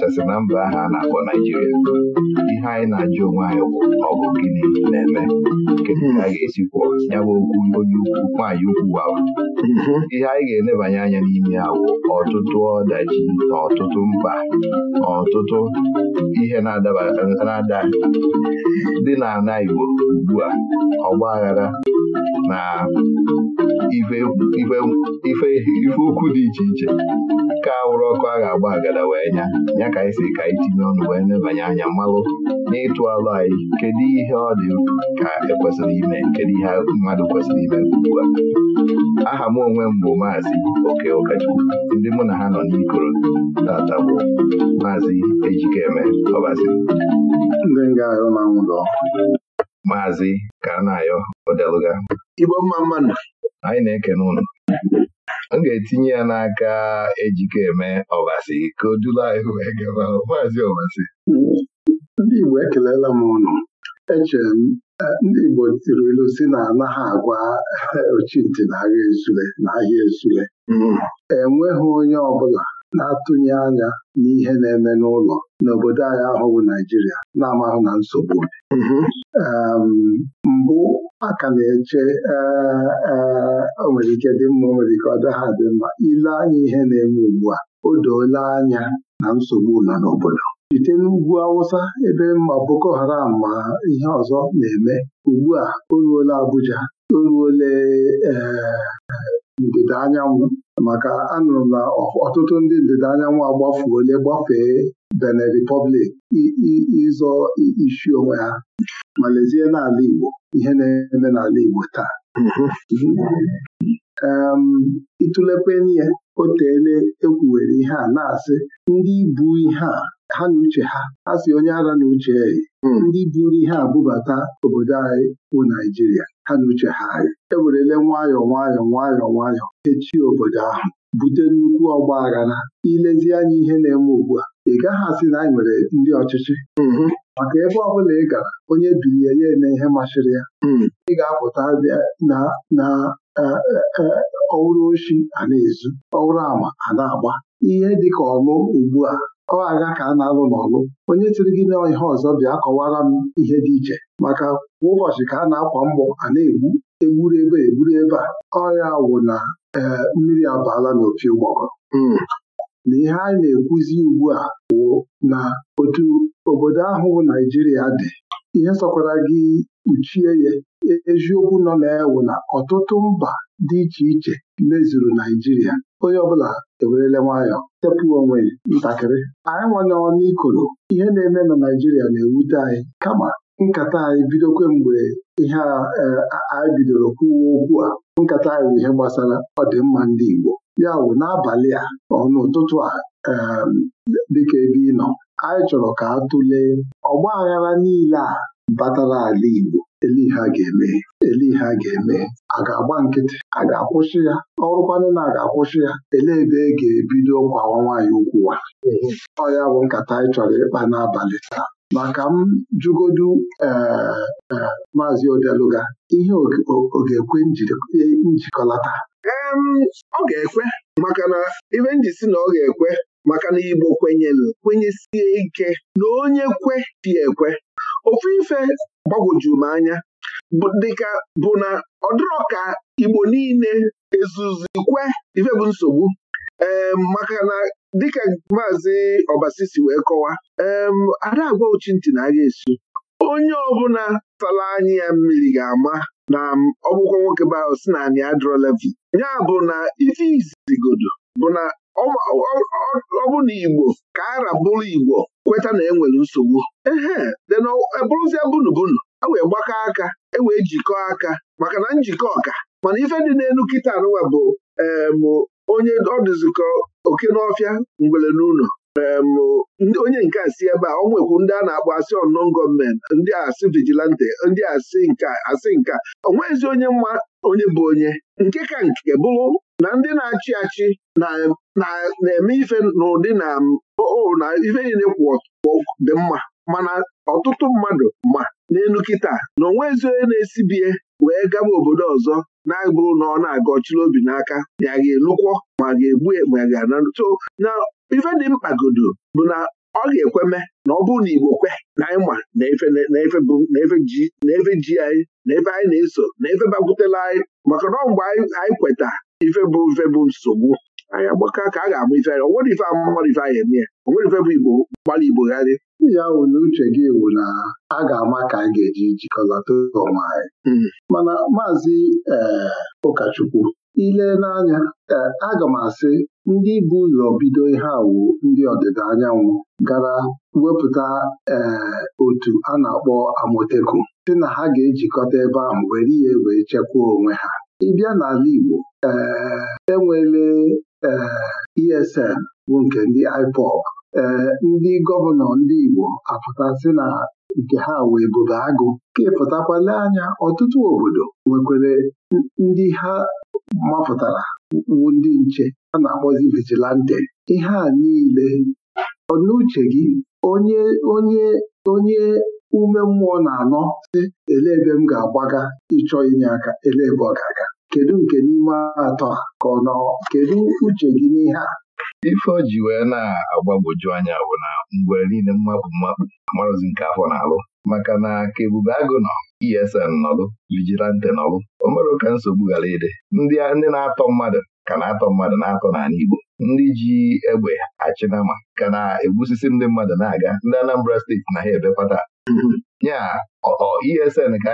kachasị na mba ahụ a na-akpọ Naijiria ihe anyị na-ajụ onwe anyị bụ ọgụ gịnị na-eme kedu ka a ga-esikwu ya okwu onye ukwu nwaanyị ukwu ahụ mhm. ihe anyị ga-enebanye anya n'ime awụ ọtụtụ ọdachi na ọtụtụ mkpa na ọtụtụ ihe na-ada dị n'ala Igbo ugbu a ọgba na ife ukwu dị iche iche ka wụrụ ọkụ a ga-agba agada wee nya ya ka anyị si ka anyị tinye ọnụ wee nebanye anya mmalụ n'ịtụ alụ anyị kedu ihe ọ dị ka ekwesịrị ime kedu ihe ọtụtụ mmadụ kwesịrị ime ugbu a aha m onwe m bụ maazị oke ụkọchukwu ndị mụ na ha nọ n'ikoro tata bụ maazị ejikeme ọbazi maazị kanayo odeluga igbo mma mmanụ anyị na-ekene ụlọ m ga-etinye ya n'aka ejikeme ọbasi ka o dula anyị wee gaba maazị ọbasi ndị igbo ekelela m ụnụ echere uh, m ndị Igbo tiri ilu si na anaghị agwa ochintị na agha ezule na ahịa esule mm. enweghị onye ọbụla na-atụnye anya n'ihe na-eme n'ụlọ n'obodo anyị ahụhụ Naijiria na-amahụ na nsogbu mm-hmm. um, mbụ a ka na-eche uh, uh, nwere ike dị mma o nwere ike ọ dịghị adị mma ile anya ihe na-eme ugbu a o doola anya na nsogbu nọ n'obodo site n'ugwu Awụsa ebe mma Boko Haram ma ihe ọzọ na-eme ugbu a o Abuja oruole eh, ndịda anyanwụ maka anụrụ na ọtụtụ ndị ndịda anyanwụ agbafuole gbafee Benin Republic ịzọ isi onwe ha ma n'ala Igbo ihe na-eme n'ala Igbo taa ịtụlepeni mm-hmm. ya otele ekwuwere ihe a na-asị ndị bụ ihe a ha na uche ha ha si onye ara na uche hmm. ndị buru ihe abụbata obodo anyị bụ Naijiria ha na uche ha anyị ewerele nwayọọ nwayọọ nwayọọ nwayọọ echi obodo ahụ bute nnukwu ọgba aghara ilezi anya ihe na-eme ugbu a ị gaghị asị na anyị nwere ndị ọchịchị hmm. maka ebe ọ bụla ị gara onye bilie ya eme ihe masịrị ya hmm. ị ga-apụta na e, e, e, ọwụrụ oshi a na-ezu ọwụrụ ama a na-agba ihe dị ka ọlụ ugbu a ọ aga ka a na-alụ n'ọlụ onye tiri gị n'ihe ọzọ bịa kọwara m ihe dị iche maka kwa ụbọchị ka a na-akwa mgbọ a na-egbu egburu ebe egburu ebe a ọrịa wụ na ee mmiri abaala n'opi ụgbọgọ hmm. na ihe anyị na-ekwuzi ugbu a wụ na otu obodo ahụ Naijiria dị ihe sọkwara gị kpuchie ya eziokwu nọ na-ewu na ọtụtụ mba dị iche iche mezuru Naijiria onye ọbụla ewerele nwayọ tepụ onwe ntakịrị anyị nwanne ọnụ ikoro ihe na-eme na Naijiria na-ewute anyị kama nkata anyị bido mgbe ihe e, anyị bidoro kwuwe okwu a nkata anyị bụ ihe gbasara ọdịmma ndị Igbo ya bụ n'abalị a ọnụụtụtụ a e, dịka ebe ị nọ anyị chọrọ ka a tụlee ọgba aghara niile a batara ala Igbo elihe a ga-eme elihe a ga-eme a ga-agba nkịtị a ga-akwụsị ya ọrụkwanụ na a ga-akwụsị ya elee ebe e ga-ebido kwawa nwaanyị ukwu wa ọ ya bụ nkata anyị chọrọ ịkpa n'abalị taa maka m jụgodu eh, eh, maazị Odeluga ihe ọ ga-ekwe njikọlata e, ọ ga-ekwe maka na ibe nji si na ọ ga-ekwe maka na Igbo kwenyere kwenyesie ike na onye kwe dị ekwe ofu ife gbagwojuru m anya dịka bụ na ọ dịrọ ka Igbo niile ezuzikwe ife bụ nsogbu maka na dịka maazị Obasi si wee kọwa ee ada agwa ochintị na agha esu onye ọbụla tara anyị ya mmiri ga-ama na ọgwụkwọ nwoke bara si na anyị adịrọ levi ya bụ na ife izigodo bụ na ọ bụ na Igbo ka ara bụrụ Igbo kweta na e nwere nsogbu ehe dena ebụrụzie bunu e wee gbakọ aka e wee jikọọ aka maka na njikọ ọka mana ife dị n'elu kịta anụwa bụ onye ọdụzikọ oke n'ọfịa ngwere n'ụlọ onye nke asị ebe a ọ nwekwu ndị a na-akpọ asị non gọọmenti ndị asị vigilante ndị asị nka asị nke ọ onye mma onye bụ onye nke ka nke bụrụ na ndị na-achị achị na-eme ife n'ụdị na na ife niile kwụ dị mma mana ọtụtụ mmadụ ma n'elu kịta na onwe onye na-esibie wee gaba obodo ọzọ na-abụrụ na ọ na-aga ọchịrị obi n'aka ya ga-elukwọ ma ga-egbu e, ma ga na ife dị mkpagodo bụ na ọ ga-ekweme na ọ bụrụ na Igbo kwe na ịma na efe ji anyị na efe anyị na-eso na efe bakwutela anyị maka na mgbe anyị kweta ife bụ mfe bụ nsogbu anyị agbakọ ka a ga amụ ife anyị nwere ife amụmadụ ife anyị eme ya nwere ife bụ igbo gbalị igbo gharị ya wụ na uche gị ewu na a ga-ama ka a ga-eji jikọlata ọma anyị hmm. mana maazị eh, ụkọchukwu ile n'anya eh, aga m asị ndị bụ ụlọ bido ihe awụ ndị ọdịda anyanwụ gara wepụta eh, otu a na-akpọ amoteku sị na ha ga-ejikọta ebe ahụ were ihe wee chekwaa onwe ha ịbịa n'ala Igbo ee eh, enwele ee eh, ESN bụ nke ndị IPOB ee eh, ndị gọvanọ ndị Igbo apụtasị na nke ha wee bobe agụ ka ịpụtakwale anya ọtụtụ obodo nwekwere ndị ha mapụtara wu ndị nche a na-akpọzi vigilante ihe a niile ọ n'uche gị onye onye onye ume mmụọ na-anọ si ele ebe m ga-agbaga ịchọ inye aka ele ebe ọ ga-aga kedu nke n'ime atọ ka ọ nọ kedu uche gị n'ihe a ife o ji wee na agbagboju anya bụ na mgbe niile mmapụ mmapụ amarụzi nke afọ na-alụ maka na ka Ebube Agụ nọ ESN nọlụ Vigilante nọlụ o ka nsogbu ghara ịdị ndị na-atọ mmadụ ka na-atọ mmadụ na-atọ n'ala Igbo ndị ji egbe achịnama ka na-egbusisi ndị mmadụ na-aga ndị Anambra steeti na ha ebepata nya ESN ka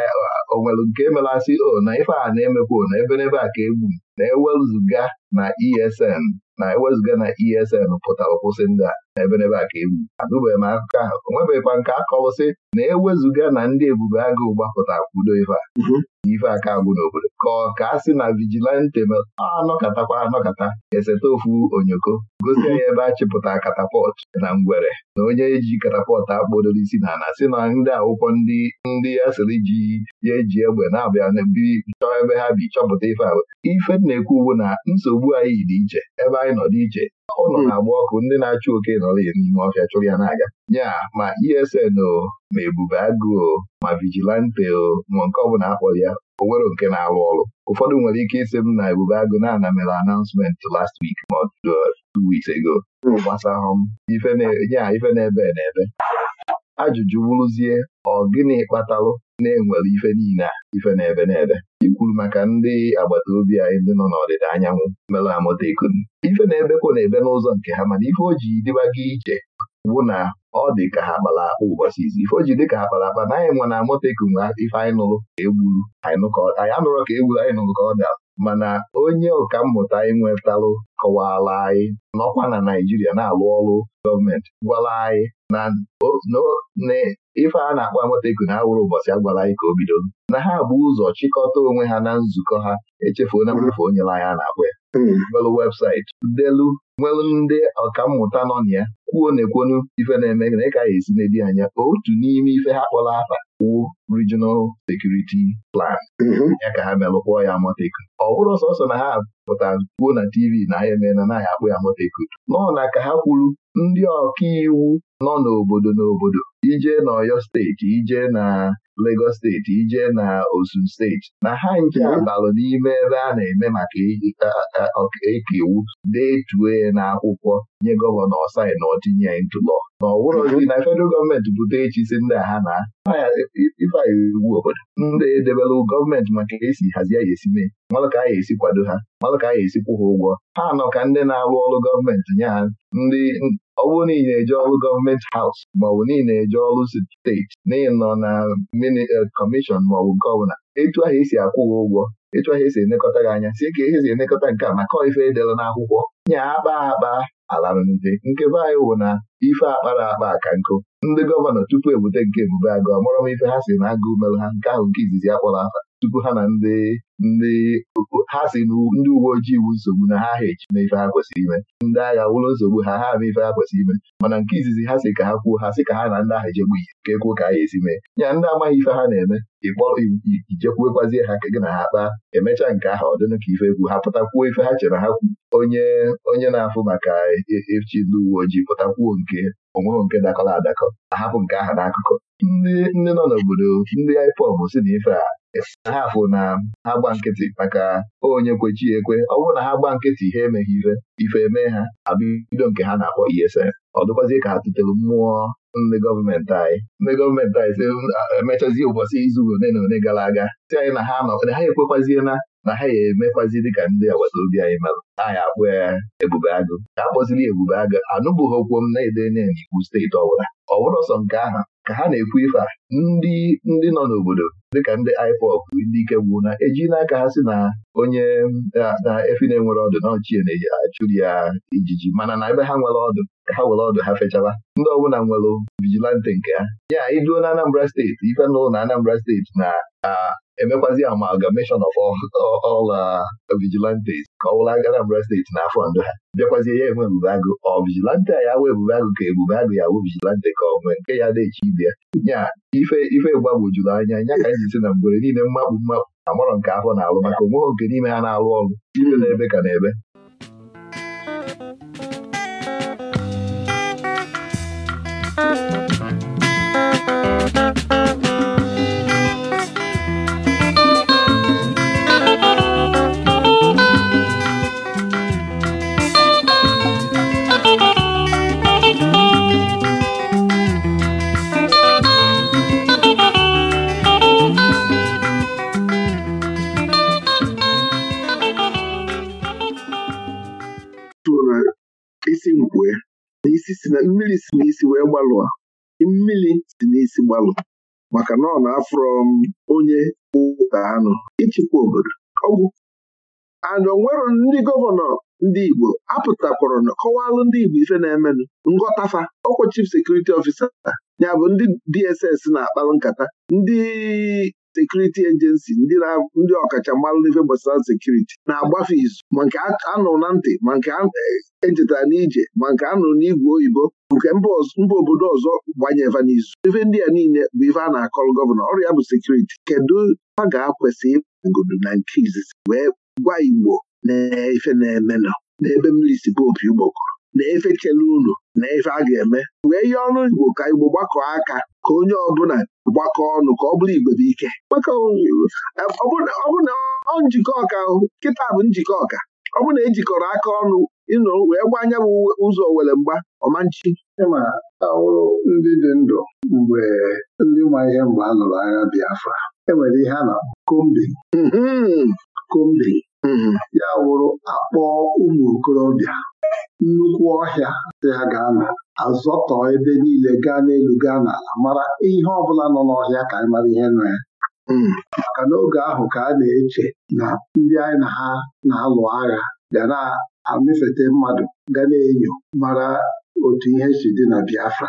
onwere nke melasị o na ife a na-emekwa na ebe n'ebe a ka egbu na e ewezuga na ESN na ewezuga na ESN pụtara kwụsị ndị a ebenebe a ka egwu anụbeghị m akụkọ ahụ o nwebeghịkwa nke akọwụsị na ewezuga na ndị ebube agụụ gbapụta kwudo ife a mhm. ife aka agwụ n'obodo ka ọ ka a sị na vigilante anọkatakwa anọkata eseta ofu onyoko gosi ya ebe a chịpụta katapọt na ngwere na onye eji katapọt akpodoro isi na ana sị na ndị akwụkwọ ndị ndị asịrị ji ya eji egbe na-abịa bi chọọ ebe ha bi chọpụta ife a ife na-ekwu bụ na nsogbu anyị dị iche ebe anyị nọ dị iche ụlọ hmm. na-agba ọkụ ndị na-achụ oke nọrọ ya n'ime ọhịa chụrụ ya n'aga nya ma ESN o ma Ebube o ma Vigilante o ma nke ọbụla akpọ ya o nwere nke na-arụ ọrụ ụfọdụ nwere ike ịsị m na Ebube Agụ na-ana mere announcement last week ma uh, two weeks ago gbasahụ m ife na-ebe na-ebe ajụjụ bụrụzie ọ gịnị kpatalụ na-enwere ife niile a ife n'ebe ebe na-ebe ikwuru maka ndị agbata obi anyị ndị nọ n'ọdịda anyanwụ merụ amụta ikunu ife na-ebekwa na-ebe n'ụzọ nke ha mana ife o ji dịba iche bụ na ọ dị ka ha kpara akpa ụbọchị izi ife o ji dị ka ha kpara akpa na anyị nwe na amụta ikunu ife anyị nụrụ ka egburu anyị anụrụ ka egburu anyị nụrụ ka ọ dara mana onye ọka mmụta anyị nwetalụ kọwara anyị n'ọkwa na Naijiria na-alụ ọrụ gọọmenti gwara anyị na ife a na-akpọ Amotekwu na awụrụ ụbọchị a anyị ka o bido na ha bụ ụzọ chịkọta onwe ha na nzukọ ha echefuo na mmefu onye anya a na-akpọ ya. Delu hmm. webụsaịtị delu nwere ndị ọkammụta nọ na ya kwuo na ekwenu ife na-eme na ịka esi na anya otu n'ime ife ha kpọrọ afa wụ Regional Security Plan mhm. ya ka ha melụkpọọ ya Amotekwu ọ bụrụ sọsọ na ha pụta kwuo na TV na ha emee na naghị akpụ ya Amotekwu nọọ na ka ha kwuru ndị ọkaiwu nọ n'obodo n'obodo ije n'Ọyọ steeti ije na Lagos steeti ije na Osun steeti na ha nke balụ n'ime ebe a na-eme maka ọkaiwu detue na akwụkwọ nye gọvanọ ọsai na otinye ntụlọ na ọ bụrụghị na federal gọọmenti bute echi si nna ha na ifeanyị ugwu obodo ndị edebela gọọmenti maka esi hazie ya esi mee malụ ka a ga esi kwado ha malụ ka a ya esi kwụ ha ụgwọ ha nọ ka ndị na-arụ ọrụ gọọmenti nye ha ndị ọ bụrụ na na-eje ọrụ gọọmenti haus maọbụ na na-eje ọrụ steeti na nọ na mini kọmishọn maọbụ gọvanọ etu ahụ esi akwụ ha ụgwọ etu ahụ esi enekọta gị anya si ka ihe esi enekọta nke a maka ife edere n'akwụkwọ nye akpa akpa alarụnde nke anyị wụ na ife akpa na akpa aka nkụ ndị gọvanọ tupu ebute nke Ebube Agụ mụrọ m ife ha si na agụ melụ ha nke ahụ nke izizi akpọrọ afa tupu ha na ndị ndị ha si ndị uwe ojii iwu nsogbu na ha ha ejime ife ha kwesịrị ime ndị agha wụlọ nsogbu ha ha ama ife ha kwesịrị ime mana nke izizi ha si ka ha kwuo ha si ka ha na ndị ahụ ejegbu ihe ka ekwuo ka ha esi mee ya ndị amaghị ife ha na-eme ịkpọrọ ijekwuekwazie ha ka gị na ha kpaa emechaa nke ahụ ọ ka ife egwu ha pụtakwuo ife ha chere ha kwu onye onye na-afụ maka e, e, echi ndị uwe ojii pụtakwuo nke onweghị nke dakọrọ adakọ ahapụ nke aha n'akụkọ ndị nọ n'obodo ndị IPOB si na ife a ha afụ na ha gba nkịtị maka onye kwechi ekwe ọ bụrụ na ha gba nkịtị ha emeghị ire ife eme ha abido nke ha na-akpọ ESN ọ dịkwazie ka ha tụtere mmụọ ndị gọọmenti anyị ndị gọọmenti anyị si emechazie ụbọchị izu ole na one gara aga si anyị na ha nọ ha ekwekwaziela na ha ya emekwazi dịka ndị agbata obi anyị merụ anyị akpụ ya ebube agụ ka akpọziri ebube agụ anụbụghị okwu m na-ede nye n'Igbo steeti ọbụla ọ bụrụ sọ nke aha ka ha na-ekwu ife a ndị ndị nọ n'obodo dịka ndị IPOB ndị ike gwụ na eji n'aka ha si na onye na efi na-enwere ọdụ na ọchie na-achụrụ ya ijiji mana na ebe ha nwere ọdụ ka ha were ọdụ ha fechaba ndị ọbụla nwere vigilante nke ha ya iduo na Anambra steeti ife n'ụlọ na Anambra steeti na emekwazi amalgamation of all uh, vigilantes ka ọ bụla gara Anambra steeti n'afọ ndụ ha bịakwazie ya enwe ebube agụ ọ vigilante a ya wee ebube agụ ka ebube agụ ya awụ vigilante ka ọ nwee nke ya daechi ibe ya ife ife gbagwojuru anya nya ka anyị na mgbere niile mmakpu mmakpu amarọ nke afọ na-alụ maka onweghị nke n'ime ha na-alụ ọrụ ibe na ebe ka na ebe isi mkpue na si na mmiri si n'isi wee gbalụa mmiri si n'isi gbalụ maka na ọ na um, onye ụta anụ ịchịkwa obodo ọgwụ ana onwero ndị gọvanọ ndị Igbo apụtakwara na kọwalụ ndị Igbo ife na-emenụ ngọtafa ọkwa chief sekuriti ọfisa ya bụ ndị DSS na-akpalụ nkata ndị sekuriti ejensi ndị ọkachamara n'ife gbasara sekuriti na-agbafe izu ma nke anụrụ na ntị ma nke ejetara e n'ije ma nke nụrụ n'igwe oyibo nke mba obodo ọzọ gbanyeva n'izu ife ndị a niile bụ ife a na-akọrọ gọvanọ ọrụ ya bụ sekuriti kedu a ga-akwesị ịgodo na nke izizi wee gwa igbo na ife na-emenọ n'ebe mmiri si popi ugbokọrọ na efe chela unu na efe a ga-eme wee ihe ọrụ igbo ka igbo gbakọọ aka ka onye ọbụla gbakọ ọnụ ka ọ bụrụ igwe bụ ike ọ bụrụ ọ njikọ ọka ahụ kịta bụ njikọ ọka ọ bụrụ na ejikọrọ aka ọnụ ịnụ wee anya bụ ụzọ were mgba ọmanchi ịma ahụrụ ndị dị ndụ mgbe ndị ma ihe mgbe a lụrụ agha Biafra enwere ihe a na-akpọ kombi. Hmm. kombin Mhm. ya wụrụ akpọọ ụmụ okorobịa nnukwu ọhịa dị ha gaa azọtọ ebe niile gaa n'elu gaa n'ala mara ihe ọbụla nọ n'ọhịa ka anyị mara ihe nọ ya mhm. maka n'oge ahụ ka a na-eche na ndị anyị na ha na-alụ agha ga na-amịfete mmadụ ga na-enyo mara otu ihe si dị na Biafra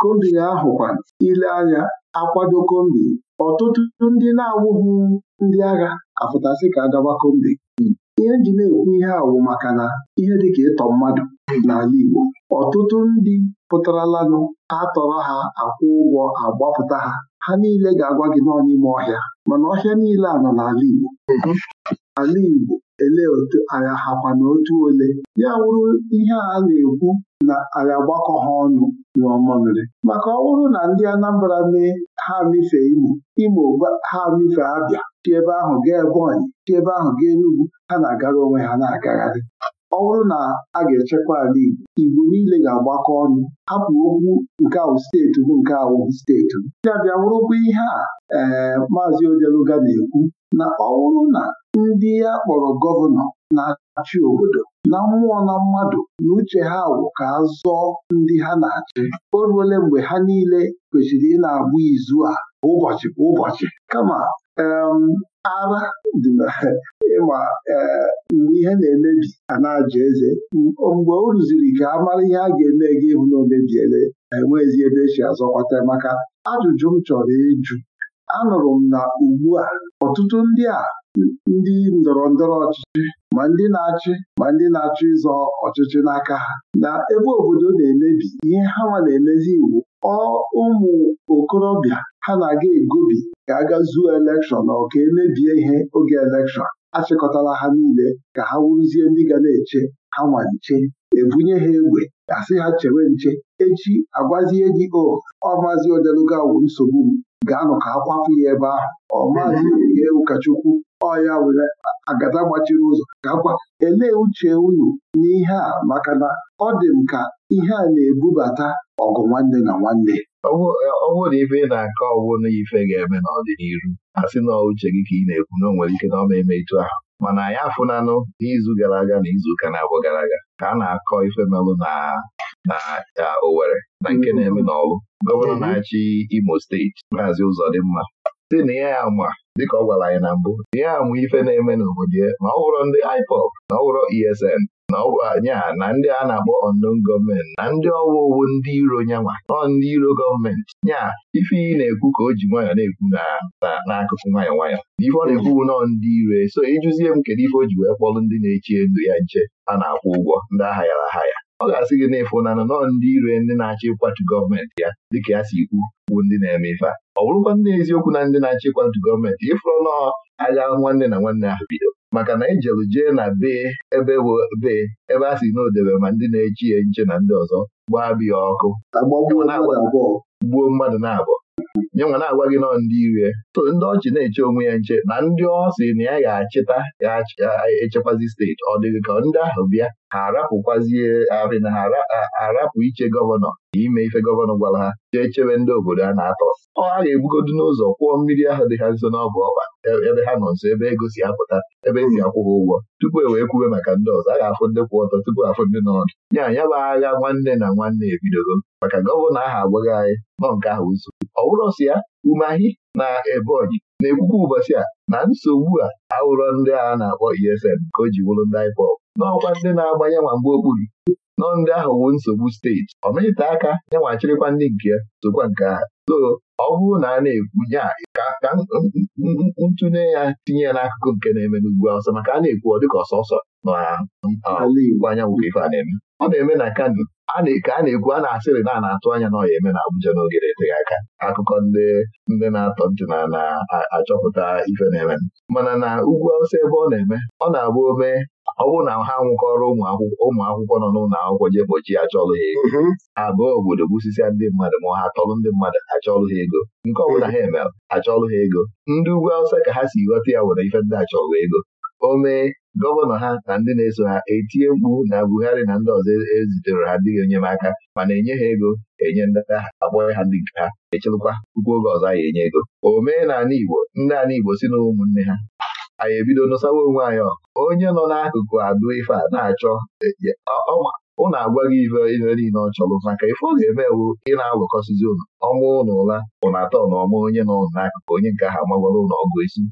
kombi ahụ kwa ile anya akwado kombi ọtụtụ ndị na-awụghị ndị agha afụtasị ka agaba kombi ihe nji na-ekwu ihe awụ maka na ihe dịka ịtọ mmadụ n'ala Igbo ọtụtụ ndị pụtaralanụ tọrọ ha akwụ ụgwọ agbapụta ha ha niile ga-agwa gị nọ n'ime ọhịa mana ọhịa niile a nọ n'ala Igbo ala Igbo ele otu agha hakwa na otu ole ya wụrụ ihe a na-ekwu na agha gbakọ ha ọnụ nyụọ maka ọ bụrụ na ndị Anambra mee ha mife Imo Imo ha mife Abịa si ebe ahụ gaa Ebonyi si ebe ahụ gaa Enugwu ha na-agara onwe ha na-agagharị ọ bụrụ na a ga-echekwa ala Igbo Igbo niile ga-agbakọ ọnụ hapụ okwu nke awụ steeti bụ nke awụ steeti ya bịa bụrụkwa ihe a ee eh, maazị Odeluga na-ekwu na ọ bụrụ na ndị ya kpọrọ gọvanọ na-achị obodo na mmụọ na mmadụ na uche ha wụ ka a ndị ha na-achị o ruole mgbe ha niile kwesịrị ị na agbụ izu a ụbọchị ụbọchị kama ara dị na ịma e, mgbe ihe na-emebi anaghị na eze mgbe o rụziri ka a mara ihe a ga-eme gị ịhụ na omebiele ezi ebe echi azọkwata maka ajụjụ m chọrọ ịjụ anụrụ m na ugbu a ọtụtụ ndị a ndị ndọrọ ndọrọ ọchịchị ma ndị na-achị ma ndị na-achọ ịzọ ọchịchị n'aka ha na ebe obodo na-emebi ihe ha nwa na-emezi iwu ọ ụmụ okorobịa ha na-aga egobi ka aga zuo elekshọn ọ ka emebie ihe oge elekshọn achịkọtala ha niile ka ha wuruzie ndị ga na-eche ha nwa nche ebunye ha egbe asị ha chewe nche echi agwazie gị o ọ maazị odelugawu nsogbu m gaa nụ ka ha ya ebe ahụ ọ maazị ụkọchukwu ọya were agada gbachiri ụzọ gakwa elee uche unu n'ihe a maka na ọ dị m ka ihe a na-ebubata ọgụ nwanne na nwanne ọ bụrụ ibe ị na-akọ ọwụ na ife ga-eme n'ọdịnihu a sị na uche gị ka ị na-ekwu na o nwere ike na ọma eme etu ahụ mana anyị afụnanụ n'izu gara aga na izuụka na abụ gara aga ka a na-akọ ife melụ na na Owere na nke na-eme n'ọlụ gọvanọ na-achị Imo steeti maazi ụzọ dị mma si na ya ama dịka ọ gwara anyị na mbụ na ya ama ife na-eme n'obodo ya ma ọ wụrọ ndị IPOB na ọ wụrọ ESN na nya na ndị a na-akpọ unknown gọọmenti na ndị ọwa owu ndị iro nyanwa ọ ndị iro gọọmenti nya ife ị na-ekwu ka o ji nwayọ na-ekwu n'akụkụ nwayọ nwayọ ife ọ na-ekwu nọọ ndị iro e, so ịjụzie m kedu ife o ji wee kpọrọ ndị na-echi elu ya nche a na-akwụ ụgwọ ndị aghayara aha ya ọ ga-asị gị n'ịfụ na nọ ndị ire ndị na-achọ ịkwatu gọọmenti ya dịka ya si ikwu bụ ndị na-eme ife a ọ bụrụkwa ndị eziokwu na ndị na-achọ ịkwatu gọọmenti ịfụrụ nọ agha nwanne na nwanne ahụ bido maka na ijelu jee na bee ebe bee ebe a si n'odebe ma ndị na-echi ya nche na ndị ọzọ gbaa biya ọkụ gbuo mmadụ na-abụọ nye nwa na-agwa gị nọ ndị ire so ndị ọchị na-eche onwe ya nche na ndị ọ sị na ya ga-achịta ya echekwazi steeti ọ dịghị ka ndị ahụ bịa ha arị na ha arapụ iche gọvanọ ime ife gọvanọ gwara ha jee chebe ndị obodo a na-atọ ọ ha ga-ebugodu n'ụzọ kwụọ mmiri ahụ dị ha nso n'ọbụ ọkpa e, ebe ha nọ nso ebe ego e si apụta ebe esi akwụ ha ụgwọ tupu e wee kwube maka ndị ọzọ a ga-afụ ndị kwụ ọtọ tupu afụ ndị n'ọdụ ya ya bụ agha nwanne na nwanne ebidogo maka gọvanọ ahụ agbaghị anyị nọ nke ahụ nso ọ bụrụ ya umeahị na ebonyi na-ekwukwa ụbọchị a na nsogbu a ahụrọ ndị agha na-akpọ ESN ka o ji bụrụ ndị n'ọkwa ndị na-agba yanwa mgbe okpuru nọ ndị ahụ wu nsogbu steeti ọmịta aka yanwa achịrịkwa ndị nke ya sokwa nke ha so ọ bụrụ na a na-ekwu ya ka ntụnye ya tinye ya n'akụkụ nke na-eme n'ugwu ọsọ. maka a na-ekwu ọ dịka ọsọsọ n'ala Igbo anyanwụ ka ife a na-eme ọ na-eme na Kano ka a na-ekwu a na-asịrị na a na-atụ anya na ọ ya eme na Abuja n'oge na-eteghị aka akụkọ ndị ndị na-atọ ntị na na-achọpụta ife na-eme mana na ugwu awụsa ebe ọ na-eme ọ na-abụ ome ọ bụrụ na ha nwụkọrọ ụmụ akwụkwọ nọ n'ụlọ akwụkwọ jee bochi achọlụ ha ego mm-hmm. abụọ obodo gbusisia ndị mmadụ ma ha tọrọ ndị mmadụ achọlụ ha ego nke ọ bụla ha mm-hmm. emere achọlụ ha ego ndị ugwu awụsa ka ha si ghọta ya nwere ife ndị achọlụ ego o mee gọvanọ ha na ndị na-eso ha etinye mkpu na Buhari na ndị ọzọ ezitere ha ndị enyemaka mana enye ha ego enye ndị agha ha ndị nke ha echelụkwa puku oge ọzọ anyị enye ego omenala Igbo ndị ala Igbo si na ụmụnne ha anyị ebido nụsawa onwe anyị onye nọ n'akụkụ adụ ife a na-achọ ụnụ e, e, agwaghị ife ife niile ọ chọrọ maka ife ọ ga emewu ewu ị na-alụkọsizi ụlọ ọmụ ụlọ ụla ụnụ atọ na ọma onye nọ n'akụkụ onye nke ha magwara ụlọ ọgụ isi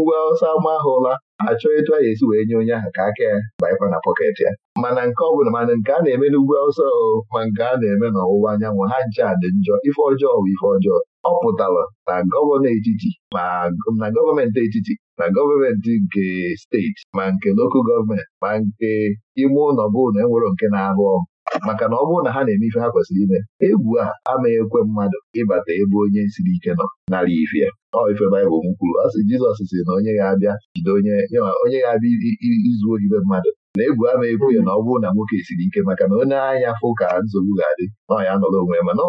ugwe ọsọ ama ha ụla achọ etu a ga-esi wee nye onye ahụ ka aka ya baịkwa na pọket ya mana nke ọbụla mana nke a na-eme n'ugwu awụsa ma nke a na-eme n'ọwụwa anyanwụ ha nche a dị njọ ife ọjọọ bụ ife ọjọọ ọ pụtara na gọvanọ etiti ma na gọọmenti etiti na gọọmenti nke steeti ma nke lokal gọọmenti ma nke ime ụlọ bụ na enwero nke na-arụ ọrụ maka na ọ bụrụ na ha na-eme ife ha kwesịrị ime egwu a amaghị ekwe mmadụ ịbata ebe onye siri ike nọ nara ife ọ ife baịbụl m kwuru ọ sị Jizọs sị na onye ga-abịa jide onye onye ga-abịa izu ohibe mmadụ na egwu ama ekwu ya na ọ bụrụ na nwoke siri ike maka na onye anya fụ ka nsogbu ga-adị nọ ya nọrọ onwe ya mana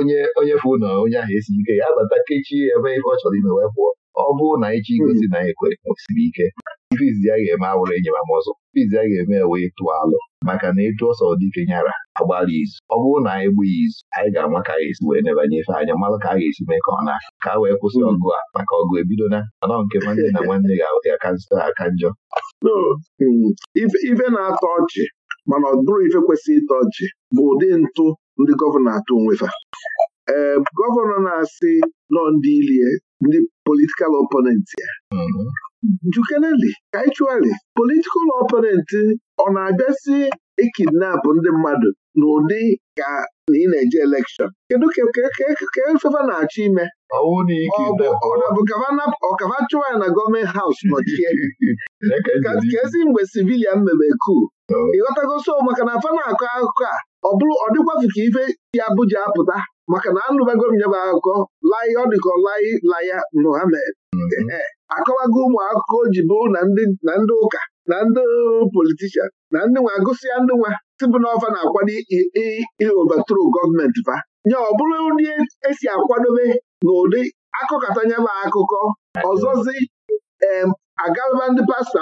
onye onye fụ na onye ahụ esighị ike ya abata kechie ya ebe ife ọ chọrọ ime wee pụọ ọ bụrụ na anyị ji hmm. na anyị kwere kwesịrị ike ife izizi a ga-eme awụrụ enyemam ọzọ ife izizi a ga-eme wee tụọ alụ maka na ịtụ ọsọ dike nyara agbalị izu ọ bụrụ na anyị e gbaa izu anyị ga-ama ka a ga-esi wee nebanye ife anya mmalụ ka a ga-esi mee ka ọ na ka a wee kwụsị hmm. ọgụ a maka ọgụ ebido na. anọ nke nwanne na nwanne ga-ahụta ka nzụta aka njọ um, ife na-atọ ọchị mana ọ bụrụ ife kwesịrị ịtọ ọchị bụ ụdị ntụ ndị gọvanọ atụ onwefa ee gọvanọ na-asị nọ ndị ilie ndị politikal oponent ya mhm. njukeneli kaịchuali politikal oponent ọ na-abịasị ikidnap ndị mmadụ n'ụdị ka na ị na-eje elekshọn kedu ka efefa na-achọ ime ọkava chụwa ya na gọọmenti haus nọchie ka ezi mgbe sivilian mebe ku ịghọtagoso maka na afa na-akọ akụkọ a ọ bụrụ ọ dịkwafu ka ife si Abuja apụta maka na anụbago m nyebe akụkọ lai ọ dịka lai laya Muhammad mhm. akọwago ụmụ akụkọ ji bụ na ndị ụka na ndị politishan na ndị nwa agụsịa ndị nwa tibụ n'ọfa na-akwado iobatro gọọmenti ba nye ọ bụrụ ndị esi akwadobe n'ụdị akụkọta nyebe akụkọ ọzọzi agaba ndị pastọ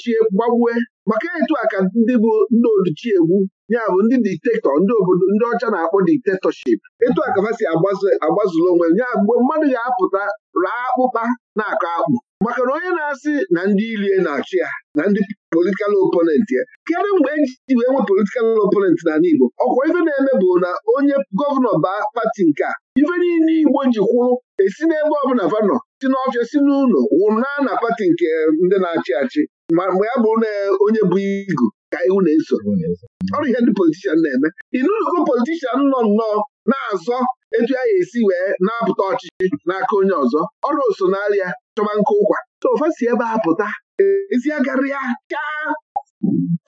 chie gbagbue maka etu a ka ndị bụ ndị odichi egwu ya bụ ndị diktatọ ndị obodo ndị ọcha na-akpọ diktatọship etu a ka si onwe ya mgbe mmadụ ga-apụta raa akpụkpa na-akọ akpụ maka na onye na-asị na ndị ilie na-achị ya na ndị politikal oponent ya kedụ mgbe eji wee nwee politikal oponent n'ala Igbo ọkwa ife na-eme bụ na onye gọvanọ baa pati nke a ife niile Igbo ji esi n'ebe ọbụla vanọ si n'ọfịa si n'ụlọ wụrụ na na pati nke eh, ndị na-achị achị ma mgbe ya bụrụ na eh, onye bụ igu ka iwu na-eso ọrụ ihe ndị politishan na-eme inuzugo politishan nọ nnọọ na-azọ etu a ga-esi wee na-apụta ọchịchị n'aka onye ọzọ ọrụ osonarịa chọba nke ụkwa sofa si ebe a pụta ezi chaa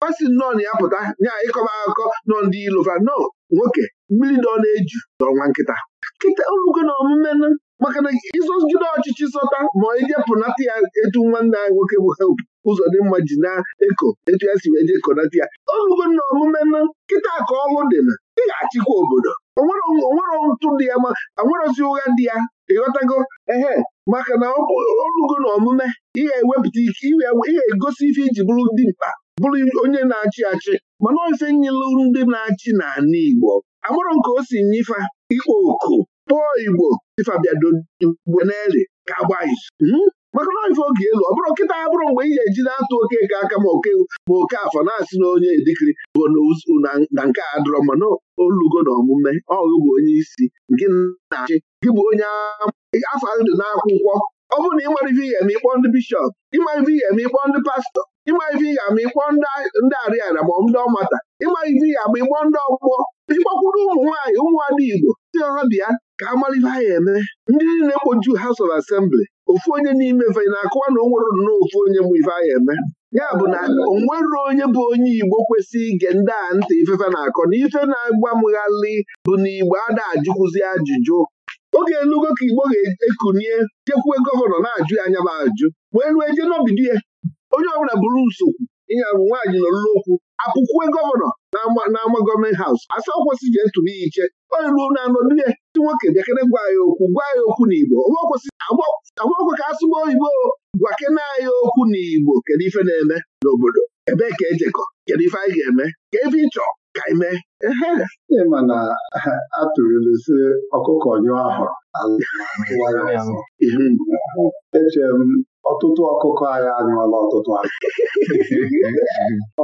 fasi nnọọ na ya pụta nya ịkọba akụkọ nọ ndị ilova no nwoke mmiri ọ na-eju n'ọnwa nkịta nkịta olugo na omume maka na Jide ọchịchị sọta ma ije ya etu nwanne anyị nwoke bụ help ụzọ dị mma ji na-eko etu ya si wee jee konata ya ọnụgo na omume nọ nkịta ka ọlụ dị na ị ga-achịkwa obodo onwere ntụ dị ya ma anwerozi ụgha dị ya ịghọtago ehe maka na ọnụgo na omume ị ga-ewepụta ike ị ga-egosi ife iji bụrụ dị mkpa bụrụ onye na-achị achị mana ofe nyelu ndị na-achị na Igbo amarọ nke o si nye ife ikpo oku kpọọ igbo ifabịadoigbo n'eli ka agbaghị hmm? maka na ife oge elu ọ bụrụ nkịta ya bụrụ mgbe ị ga-eji na-atụ oke ka aka ma oke ma oke afọ na-asị na onye dịkịrị bụ na nke a dọrọ mana olugo na omume ọgụ bụ onye isi gị na-achị gị bụ onye afọ ndụ n'akwụkwọ ọ bụrụ na ị nwere ife ihe ma ịkpọ ndị bishọp ịma ife ihe ma ịkpọ ndị pastọ ịma ife ihe ma ịkpọ ndị arịara ma ndị ọmata ịma ife ihe ma ịkpọ ndị ọgbọ ịkpọkwuru ụmụ nwaanyị ụmụ ada igbo si ha bịa ka amalive ha eme ndị na kpoju House of Assembly ofu onye n'ime vei na-akụwa na o nwere nnọọ ofu onye mụ ife eme ya bụ na onwero onye bụ onye Igbo kwesịrị ige ndị a ntị ifefe na-akọ na ife na-agbamghalị bụ na Igbo ada ajụkwụzi ajụjụ oge elugo ka Igbo ga-ekunie jekwue gọvanọ na-ajụ ya anya bụ ajụ wee rue jee n'obido ya onye ọbụla bụrụ nsogbu ịnya bụ nwaanyị nọ n'okwu apụkwue gọvanọ n'ama gọọmenti haus asa kwesị ji ntụrụ ya iche onye ruo na anọ ndị nwoke bịakere gwa ya okwu gwa ya okwu n'Igbo agbọkwe ka asụba oyibo gwakene anyị okwu n'Igbo kedu ife na-eme n'obodo ebee ka ejekọ kedu ife anyị ga-eme ka ebe ịchọ ka anyị mee ịma na atụrụlụ ọkụkọ nyụọ ahụrụ echere m ọtụtụ ọkụkọ anyị anyụọla ọtụtụ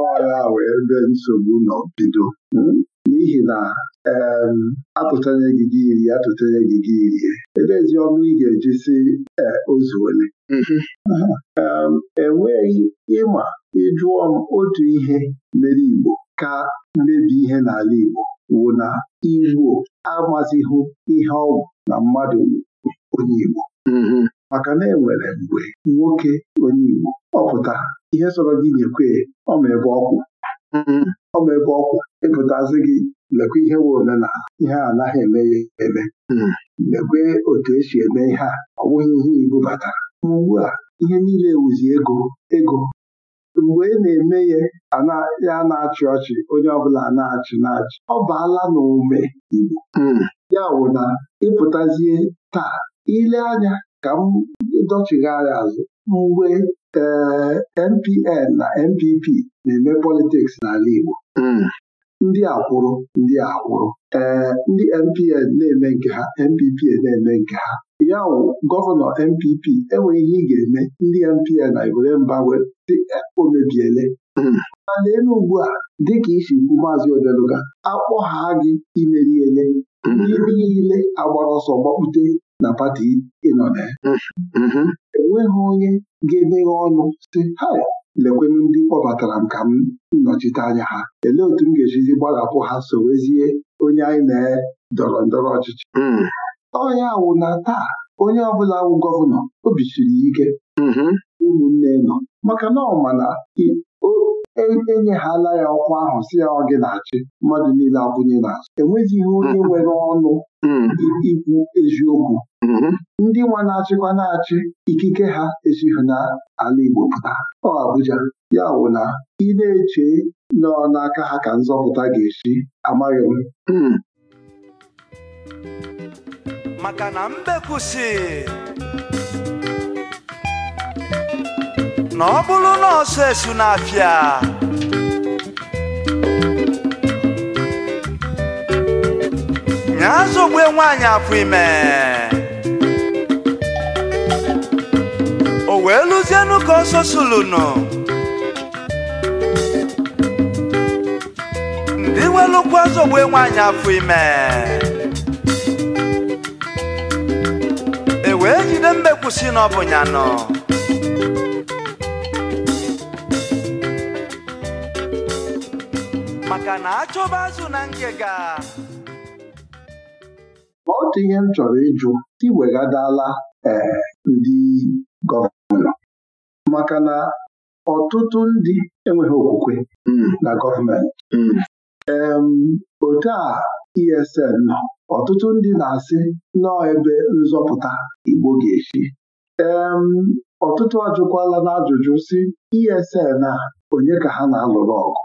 ọya wee ebe nsogbu nọ bido hmm? n'ihi na ee gị gị iri atụchanye gị gị irie edezi ọnụ ị ga-eji si e, ole mm-hmm. enweghị e ịma ịjụọ m otu ihe mere Igbo ka mmebi ihe n'ala Igbo wụ na Igbo amazighị ihe ọ bụ na mmadụ onye Igbo mm-hmm. maka na enwere mgbe nwoke onye Igbo ọ pụtara ihe sọrọ gị nyekwe ọma ebe ọkwụ mm-hmm. ọmebe ebe ọkwụ ịpụtazi gị lekwa ihe nwe na ihe a anaghị eme ya eme mm-hmm. lekwe otu esi eme ihe a ọ bụghị ihe Igbo batara ugbu a ihe niile wụzi ego ego mgbe ị na-eme ya na-achị ọchị onye ọbụla na-achị na-achị ọ baala n'ume Igbo mm-hmm. ya wụ na ịpụtazie taa ile anya ka m dọchigharị azụ mgbe NPN na NPP na-eme politiks n'ala Igbo ndị akwụrụ ndị akwụrụ ee ndị NPN na-eme nke ha NPP na-eme nke ha ya wụ gọvanọ NPP enweghị ihe ị ga-eme ndị NPN na egwuregwu mba e, o mebiele mana elu ugbu a dịka isi kwu maazị Odeluga ha gị imeri ele ndị niile agbara ọsọ gbakpute na pati ị na mm-hmm. enweghị onye ga-emeghe ọnụ sị ha lekwenụ ndị kpọbatara m ka m nnọchite anya ha elee otu m ga-ejizi gbarapụ ha sowezie onye anyị na-dọrọ e ndọrọ ọchịchị mm. Onye wụ na taa onye ọbụla wụ gọvanọ obi ike mm-hmm. ụmụnne nọ maka na ọ ma enyeghala ya ọkwa ahụ si ya ọ gị na-achị mmadụ niile akwụnye n'azụ enwezighị onye mm-hmm. nwere ọnụ mm-hmm. ikwu eziokwu mm-hmm. ndị nwa na-achịkwa na-achị ikike ha esighị n'ala Igbo pụta ọ Abuja ya bụ na ị na-eche nọ n'aka ha ka nzọpụta ga-esi amaghị m maka na na ọ bụrụ na ọsọ esu na-afịa nya azọgbe nwaanyị afọ ime o wee lụzienụ ka ọsọ sulunu ndị welụkwa azọgbe nwanyị afọ ime e wee jide mbekwusi na ọ nọ na-achọba azụ na ngega otu ihe m chọrọ ịjụ iwegadala ee ndị gọvanọ maka na ọtụtụ ndị enweghị okwukwe na gọọmenti otu a ESN nọ ọtụtụ ndị na-asị nọọ ebe nzọpụta Igbo ga-esi ọtụtụ ajụkwala n'ajụjụ si ESN a onye ka ha na-alụrụ ọgụ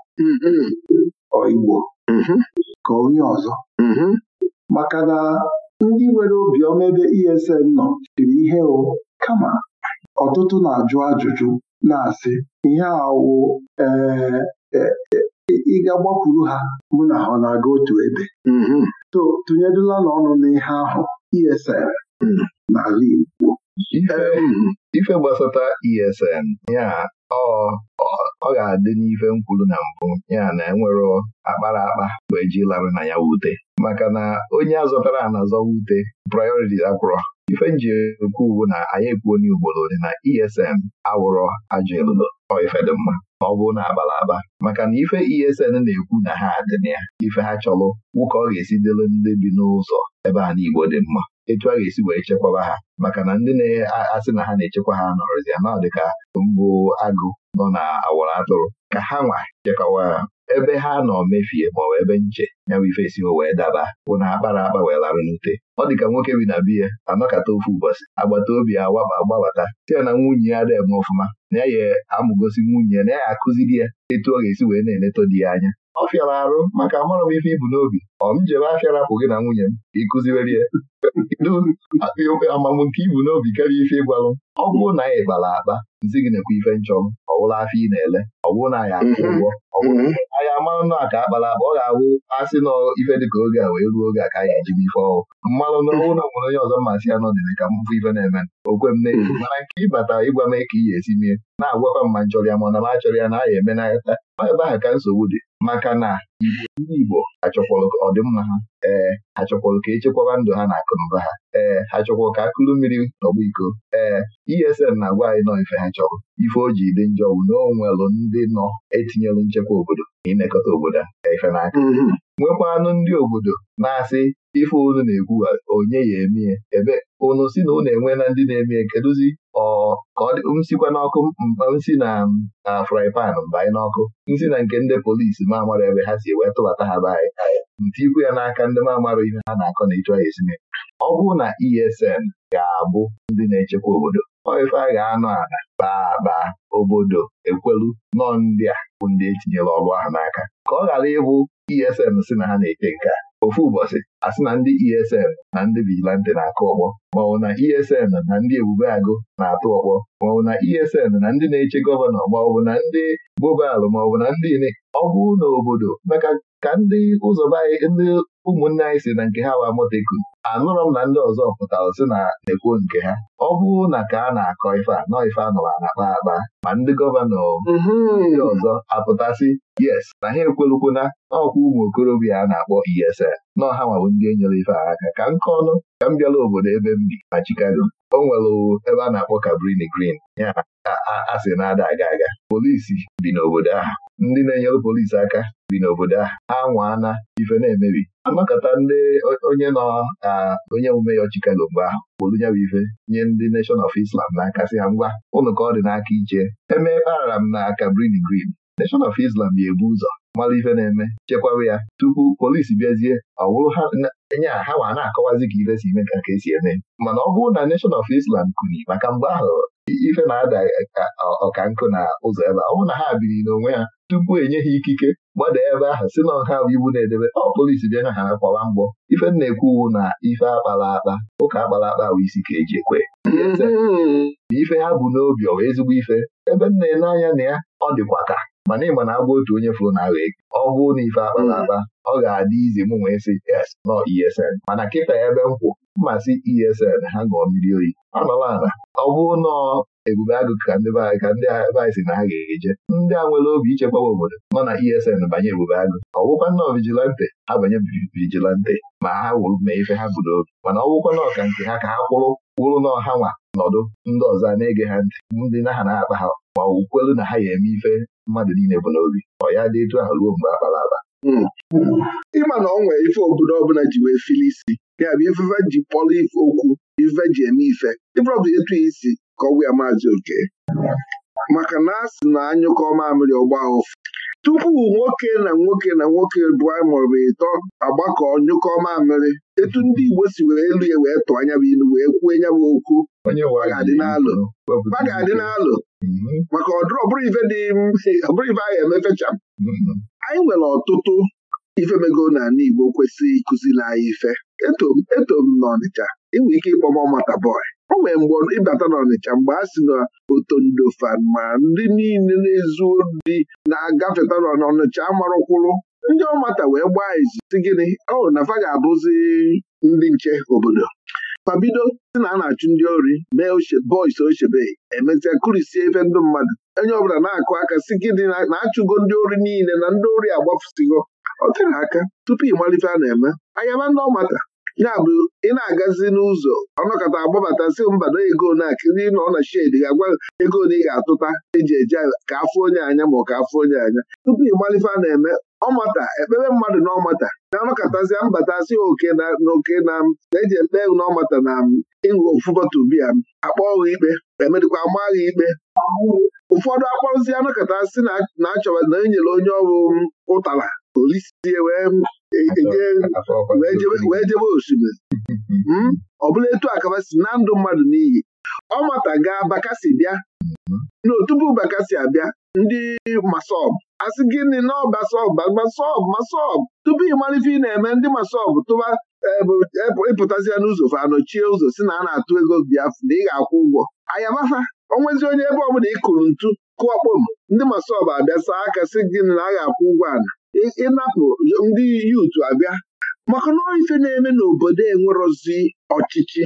Igbo mhm. ka onye ọzọ mhm. maka na ndị nwere obiọma ebe ESN nọ chiri ihe o kama ọtụtụ na-ajụ ajụjụ na-asị ihe awụ eh, eh, ịga gbakwuru ha mụ na ọ na-aga otu ebe mhm. tụnyedụla na n'ọnụ n'ihe ahụ ESN mm. n'ala Igbo ESN ọ ga-adị n'ife nkwulu na mbụ ya na enwere akpara akpa bụ eji lara na ya wute maka na onye azọtara anazọ wute prayọriti akwụrọ ife nji ekwu uwu na anyị ekwuo onye ugboro dị na ESN awụrọ ajọ elulo ọ ife dị mma ọ bụrụ na abala aba maka na ife ESN na-ekwu na ha dị na ya ife ha chọrọ nwoke ọ ga-esi dịrị ndị bi n'ụzọ ebe a n'Igbo dị mma etu a ga-esi wee chekwaba ha maka na ndị na-asị na ha na-echekwa ha nọrọzi ya na dịka mbụ agụ nọ na awara atụrụ ka ha nwa chekwawa ha ebe ha nọ mefie maọbụ ebe nche ya bụ ife esiwo wee daba bụ na akpara akpa wee larụ n'ute ọ dị ka nwoke bi na biya anọkata ofu ụbọchị agbata obi awaba agbabata site na nwunye ya deme ọfụma na ya ya amụgosi nwunye ya na ya akụziri ya etu ọ ga-esi wee na-eleto di ya anya ọ fịara arụ maka amarọ m ife ibu n'obi ọ m jebe afịa rapụ gị na nwunye m ịkụziwere ya kedu akpa amamụ nke ibu n'obi karịa ife ịgwalụ ọ bụrụ na anyị gbara akpa nzi gị na-ekwe ife nchọ m afịa ị na-ele ọ bụrụ na anyị akwụ mhm. ụgwọ ọ bụrụ mhm. anyị amanụ na aka akpara akpa ọ ga-awụ asị na ife dịka oge a wee ruo oge a ka anyị ejibe ife ọrụ mmanụ na ọnwụ na nwere onye ọzọ mmasị ya nọdịrị ka m fụ ife na-eme okwe m na-eji mhm. mana nke ịbata ịgwa m ka ị ga-esi mie na-agwakwa m ma nchọrọ ya ma na m achọrọ ya na aya ya emenata ọ ebe aha ka nsogbu dị maka na ndị Igbo achọkwalụ ọdịmma ha ee ha chọkwalụ ka echekwaba ndụ ha na akụnụba ha ee ha chọkwalụ ka akụlụ mmiri nọgbu iko ee ESN na-agwa anyị nọ ife ha chọrọ ife o ji dị njọ bụ na o ndị nọ etinyelụ nchekwa obodo na obodo ife n'aka mm-hmm. nwekwanụ ndị obodo na-asị ife unu na-ekwu onye ya emie ebe unu si na unu enwe na ndị na-emie kedụzi ka ọ m sikwa n'ọkụ mba m si na fry pan mbanye n'ọkụ m si na nke ndị polisi ma amara ebe ha si wee tụbata ha be anyị nti ikwu ya n'aka ndị ma amara ihe ha na-akọ na ịchọ ya esime ọ bụrụ na ESN ga-abụ ndị na-echekwa obodo ọ a ga-anọ ala baba obodo ekwelu nọ ndị a bụ ndị etinyere ọrụ ahụ n'aka ka ọ ghara ịbụ ESN si na ha na ete nke a ofu ụbọchị asị na ndị ESN na ndị vigilante na-akụ ọkpọ maọbụ na ESN na ndị ebube agụ na-atụ ọkpọ maọbụ na ESN na ndị na-eche gọvanọ maọbụ na ndị bobalụ maọbụ na ndị ile ọ bụrụ maka ka ndị ụzọ ndị ụmụnne anyị si na nke ha wa moteku anụrọ m na ndị ọzọ pụtara si na na-ekwuo nke ha ọ bụrụ na ka a na-akọ ife a nọ ife anụrụ na-akpa akpa ma ndị gọvanọ mhm. ndị ọzọ apụtasị yes na ha na n'ọkwa ụmụ okorobịa a na-akpọ ESN nọ ha nwabụ ndị enyere ife a aka ka nke ọnụ ka m bịala obodo ebe m bi na Chicago o nwere ebe a na-akpọ Cabrini Green ya asị na-ada aga aga polisi bi n'obodo ahụ ndị na-enyere polisi aka bi n'obodo a ha anwaana ife na-emebi anakọta ndị onye nọ na onye omume ya Chicago mgbe ahụ kwuru ya bụ ife nye ndị Nation of Islam na akasị ha ngwa ụnụ ka ọ dị n'aka iche eme kparara m na Cabrini Green Nation of Islam ga-ebu ụzọ mara ife na-eme chekwaba ya tupu polisi bịazie ọ bụrụ enye ha ma na-akọwazi ka ife si eme ka ka e esi eme mana ọ bụrụ na Nation of Islam kuni maka mgbe ahụ ife na-ada ọka nkụ na ụzọ ebe ọ bụrụ na ha biri n'onwe ha tupu enye ha ikike gbada ebe ahụ si na ọha bụ iwu na-edebe ọ polisi bịa na ha akpọwa mgbọ ife na-ekwu na ife akpala akpa ụka akpala akpa bụ isi ka eji ekwe na mm-hmm. ife ha bụ n'obi ọwa ezigbo ife ebe m na-ele anya na ya ọ dịkwa ka mana ịma na agwa otu onye fụrụ na agha na ife akpala mm-hmm. akpa ọ ga-adị izi m wee sị es nọ ESN mana kịta ebe m kwụ mmasị ESN ha ṅụọ mmiri oyi anọla ala ọ bụrụ nọọ ebube agụ ka ndị be ka ndị ebe si na ha ga-eje ndị a nwere obi ichekwaba obodo nọ na ESN banye ebube agụ ọwụkwa nnọọ vigilante abanye vijilante ma ha wuru mee ife ha budo obi mana ọwụkwa nọọ ka nke ha ka ha kwụrụ kwụrụ na ha nwa nọdụ ndị ọzọ a na-ege ha ntị ndị na ha na-akpa ha ma ọ na ha ga-eme ife mmadụ niile bụ n'obi ọ ya dị etu ahụ ruo mgbe akpara aba hmm. ịma na ọ nwee ife obodo ọbụla ji wee fili isi ya bụ ifefe ji kpọrọ ife okwu ifefe ji eme ife etu isi kọwa ya maazị oke maka na a sị na anyụkọ mamịrị ọgba ụfụ tupu nwoke na nwoke na nwoke bụa maọbụ ịtọ agbakọ nyụkọ mamịrị etu ndị Igbo si were elu ya wee tụọ anya bụ ilu wee kwuo nya bụ okwu ọ ga-adị n'alụ mhm. maka ọdụrụ ọbụrụ ife dị ọbụrụ ife ga emefecha mhm. anyị nwere ọtụtụ ifemego n'ala Igbo kwesịrị ịkụziri anyị ife eto m nọ Ọnịcha inwe ike ịkpọm mata bọị o nwere mgbe ịbata n'Ọnịcha mgbe a sị na otondo ma ndị niile na-ezu ndị na-agafeta n'Ọnịcha amarụkwụrụ ndị ọmata wee gbaa izu si gịnị ọ na fa ga-abụzi ndị nche obodo fabido si na a na-achụ ndị ori mee bọis ochebe emesịa kurisie efe ndị mmadụ onye ọbụla na-akụ aka si gịnị na-achụgo ndị ori niile na ndị ori agbafusigo ọ tere aka tupu ịmalite a na-eme anyaba ndị ọmata yabụ ị na-agazi n'ụzọ ọnọkọta agbabatazi mbado ego na-akịrị nọ na shedi ga-agwa ego na ị ga-atụta eji eje ka afọ onye anya ma ọ ka afọ onye anya tupu ị malife a na-eme ọmata ekpere mmadụ na ọmata na mbata si oke na oke na na-eji ekpe na ọmata na ịṅụ ofu bọtụ m akpọ ọghụ ikpe emedịkwa amaghị ikpe ụfọdụ akpọrụzi anọkọta si na achọba na enyere onye ọrụ ụtara. olisi eh, e, e, e, wee jebe osimiri hmm? ọbụla etu akaba si na ndụ mmadụ n'iyi ọ mata gaa bakasi bịa mhm. na otupu bakasi abịa ndị masọb asị gịnị na ọbasọb masọb tupu ị ị na-eme ndị masọb tụba ịpụtazia n'ụzọ fa anọchie ụzọ si na a na-atụ ego biafra na ị ga-akwụ ụgwọ ayamafa onwezi onye ebe ọbụla ị kụrụ ntu kụọ kpom ndị masob abịa saa aka si gịnị na a ga-akwụ ụgwọ ana ịnapụ ndị yutu abịa maka na ife na-eme n'obodo enwerozi ọchịchị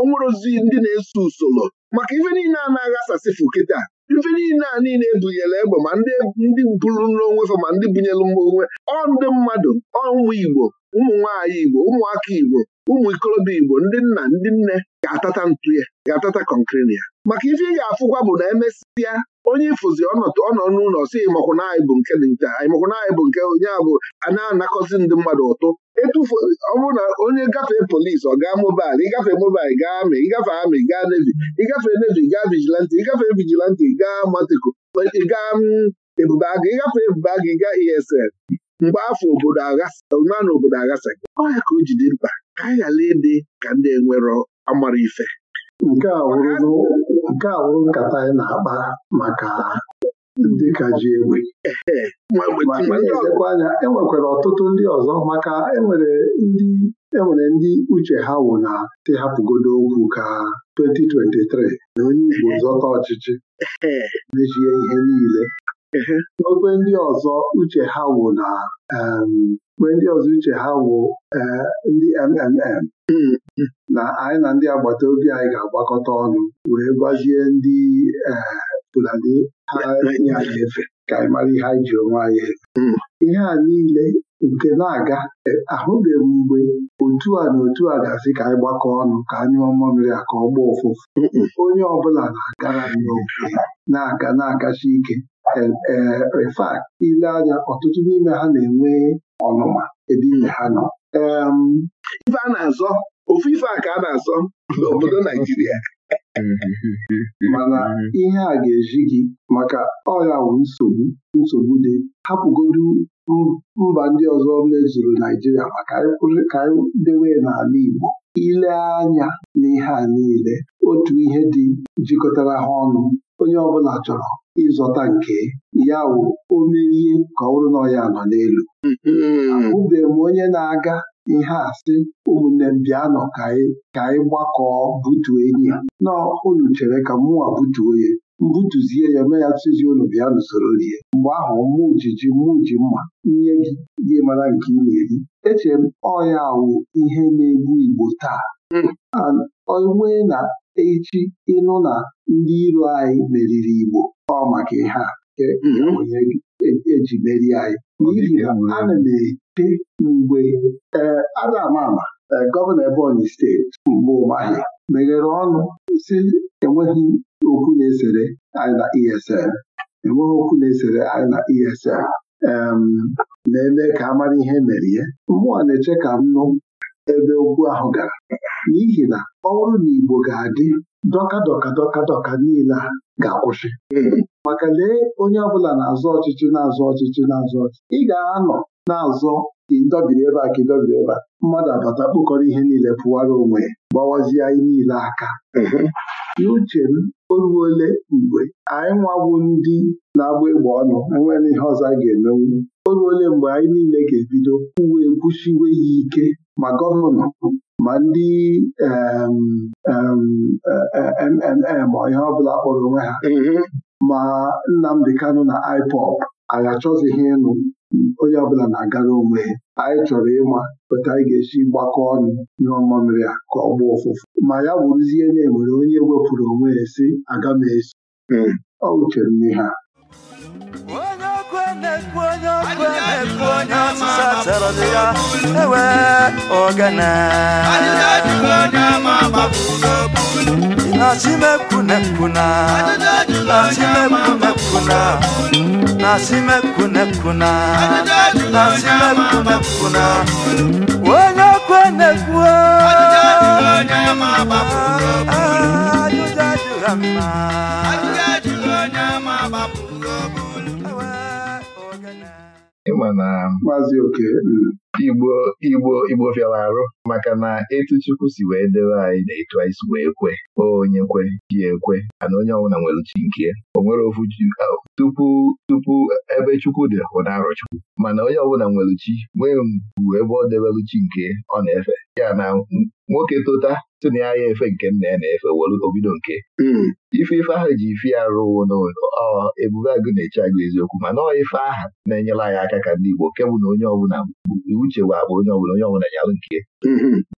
onwerozi ndị na-eso usoro maka ife niile a na-aghasasịfụ kịta ife niile a niile ebunyere egbe ma ndị bụrụ n'onwe fa ma ndị bunyere onwe ọ ndị mmadụ ọ ụmụ Igbo ụmụ nwaanyị Igbo ụmụaka Igbo ụmụ ikorobịa Igbo ndị nna ndị nne ga-atata ntụ ya ga-atata kọnkịrị ya maka ife ị ga-afụkwa bụ na emesịa onye ifụzi ọnọdụ n'ụlọ si ịmakwụna anyị bụ nke dị nke ịmakwụna anyị bụ nke onye abụ a na-anakọzi ndị mmadụ ụtụ etufu bụrụ na onye gafee polisi ọ gaa mobail ịgafe mobail gaa amị ịgafe amị gaa nevi ịgafe nevi gaa vijilanti ịgafe vigilanti gaa matiko gaa mm, ebube agụ ịgafe ebube gaa esl mgbe afọ obodo agha na obodo aghasa gị ọ ka o jidi mkpa ka anyị ghara ịdị ka ndị enwero amara ife nke a wụrụ nkata anyị na-akpa maka ndị ka ji egbe ma anya enwekwara ọtụtụ ndị ọzọ maka enwere ndị enwere ndị uche ha wụ na te okwu ka 2023 na onye Igbo zọta ọchịchị mechie ihe niile Obe ndị ọzọ uche ha wụ na mgbe um, ndị ọzọ uche ha wụ eh, ndị MMM na anyị na ndị agbata obi anyị ga-agbakọta ọnụ wee gwazie ndị eh, Fulani ha nye anyị efe ka anyị mara ihe anyị ji onwe anyị hmm. ihe a niile nke na-aga eh, ahụbeghị mgbe otu a na otu a ga-asị ka anyị gbakọ ọnụ ka anyị nyụọ mmamịrị a ka ọ gbaa ụfụfụ onye ọbụla na-agara n'oke na-aka na-akacha ike refat ile anya ọtụtụ n'ime ha na-enwe ọnụma ebe ime ha nọ um, ife a na-azọ ofu ife a ka a na-azọ n'obodo Naijiria mm-hmm. mana mm-hmm. ihe a ga-eji gị maka ọya wụ nsogbu nsogbu dị hapụgodu mba ndị ọzọ mezuru Naijiria maka ka anyị dewe n'ala Igbo ile anya n'ihe a niile otu ihe dị jikọtara ha ọnụ onye ọbụla chọrọ ịzọta nke ya wụ o ka ọ bụrụ na ọ ya nọ n'elu hmm. ahụbeghị m onye na-aga ihe a sị ụmụnne m bịanụ ka anyị gbakọọ butuo enyi ya nọ unu chere ka mụnwa butuo ya mbutuzie ya mee ya tụzi ụlọ bịa n'usoro rie mgbe ahụ mụ jiji mụ mma nye gị gị mara nke ị na-eri echere m ọya wụ ihe na-egbu Igbo taa hmm. onwe na echi ịnụ na ndị iro anyị meriri Igbo ọ maka ha mm-hmm. eji e merie anyị n'ihi na e ana m eche mgbe ee ada ama ama e, gọvanọ Ebonyi steeti mgbe ụmahị meghere ọnụ si enweghị okwu na-esere anyị na ESM. enweghị okwu na-esere anyị na na-eme ka a ihe mere ya mmụọ na-eche ka m nụ ebe ugbu ahụ gara n'ihi na ọrụ na Igbo ga-adị dọka dọka dọka dọka niile a ga-akwụsị hmm. maka lee onye ọbụla na-azụ ọchịchị na-azụ ọchịchị na-azụ ọchịchị ị ga-anọ na-azọ ka ịdọbiri ebe a ka ịdọbiri ebe a mmadụ abata kpụkọrọ ihe niile pụwara onwe gbawazie anyị niile aka hmm. n'uche m o mgbe anyị nwabu ndị na-agba egbe ọnụ enwere ihe ọzọ a ga-emenwu o mgbe anyị niile ga-ebido uwe ekwuchiwe ya ike ma gọvanọ ma ndị MMM ma ihe ọbụla kpọrọ onwe ha mm-hmm. ma Nnamdi Kano na iPOP anyị achọzighị ịnụ onye ọbụla na-agara onwe ya anyị chọrọ ịma pụta anyị ga-esi gbakọ ọnụ ihe ọma mere ya ka ọ gbaa ụfụfụ ma ya bụrụzie na enwere onye wepụrụ onwe ya si aga m esi mm. ọ wuchere n'ihe a Onye ọkụ ewe ogene nasimekunekuna nasimekunekuna nasimekunekuna nasimekunekuna onye kwenekwuo ajụjụ ajụra mma ịma na maazị oke hmm. igbo igbo igbo fịara arụ maka na etu Chukwu si wee debe anyị na etu anyị si wee kwe onye kwe ji ekwe ana onye ọbụla nwere uchi nke ya o nwere ofu ji tupu tupu ebe Chukwu dị bụ na Chukwu mana onye ọbụla nwere uchi nwee mgbu ebe ọ debelu chi nke ọ na-efe ya na nwoke tota tụ na ya efe nke nna ya na-efe were obido nke hmm. ife ife ahụ ji ife ya rụwo n'ebube agụ na-eche agụ eziokwu mana ọ ife aha na-enyere anyị aka ka ndị Igbo nke na onye ọbụla bụ Uche chewa akpa onye ọbụla onye ọbụla nyalụ nke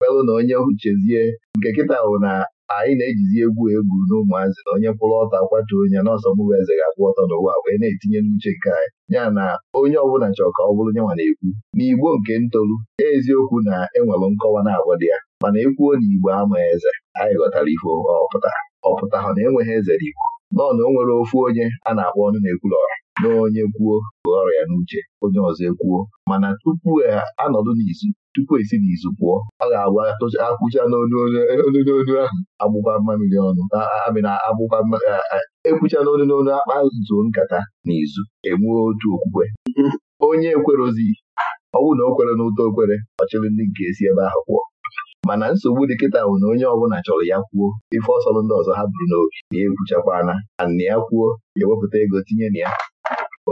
melụ mm-hmm. na onye chezie nke kịta bụ na anyị na-ejizi egwu egwu n'ụmụazị na onye kwụrụ ọtọ akwatu onye n'ọsọ mụbụ eze ga akpụ ọtọ n'ụwa wee na-etinye n'uche nke anyị ya na onye ọbụla chọrọ ka ọ bụrụ nyanwa na-ekwu n'igbo nke ntolu eziokwu na enwere nkọwa na-agwa dị ya mana ekwuo na igbo ama eze anyị ghọtara ifo ọpụta ọpụta ha na enweghị eze n'igbo nọọ na o nwere ofu onye a na-akpọ ọnụ na-ekwuru na onye kwuo ọrụ ọrịa n'uche onye ọzọ ekwuo mana tupu e a nọdụ n'izu tupu esi n'izu pụọ ọ ga-agwa akwụcha n'onu n'onu ahụ agbụba mmamiri ọnụ amịna agbụba ekwucha n'onu n'onu akpa zuo nkata n'izu enwuo otu okwukwe onye ekwerozi ọ bụrụ na o kwere n'ụtọ okwere ọchịrị ndị nke esi ebe ahụ pụọ mana nsogbu dị kịta bụ na onye ọbụla chọrọ ya kwuo ife ọsọrọ ndị ọzọ ha buru n'obi na ekwuchakwana na ya kwuo ewepụta ego tinye na ya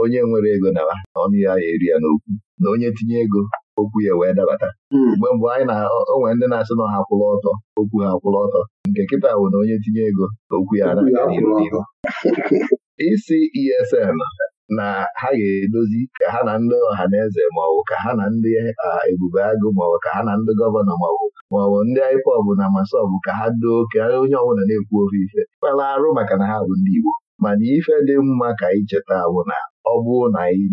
onye nwere ego na ọnụ ya ya eri ya n'okwu na onye tinye ego okwu ya wee dabata hmm. mgbe mgbe anyị na onwe ndị na-asị na ha kwụrụ ọtọ okwu ha kwụlụ ọtọ nke kịta bụ na onye tinye ego okwu ya na isi ESN na ha ga-edozi ka ha na ndị ọha na eze maọbụ ka ha na ndị ebube agụ maọbụ ka ha na ndị gọvanọ maọbụ maọbụ ndị IPOB na masọbụ ka ha doo ka onye ọbụla na-ekwu ofe ife kpela arụ maka na ha bụ ndị Igbo mana ife dị mma ka ị cheta bụ na ọ bụrụ na anyị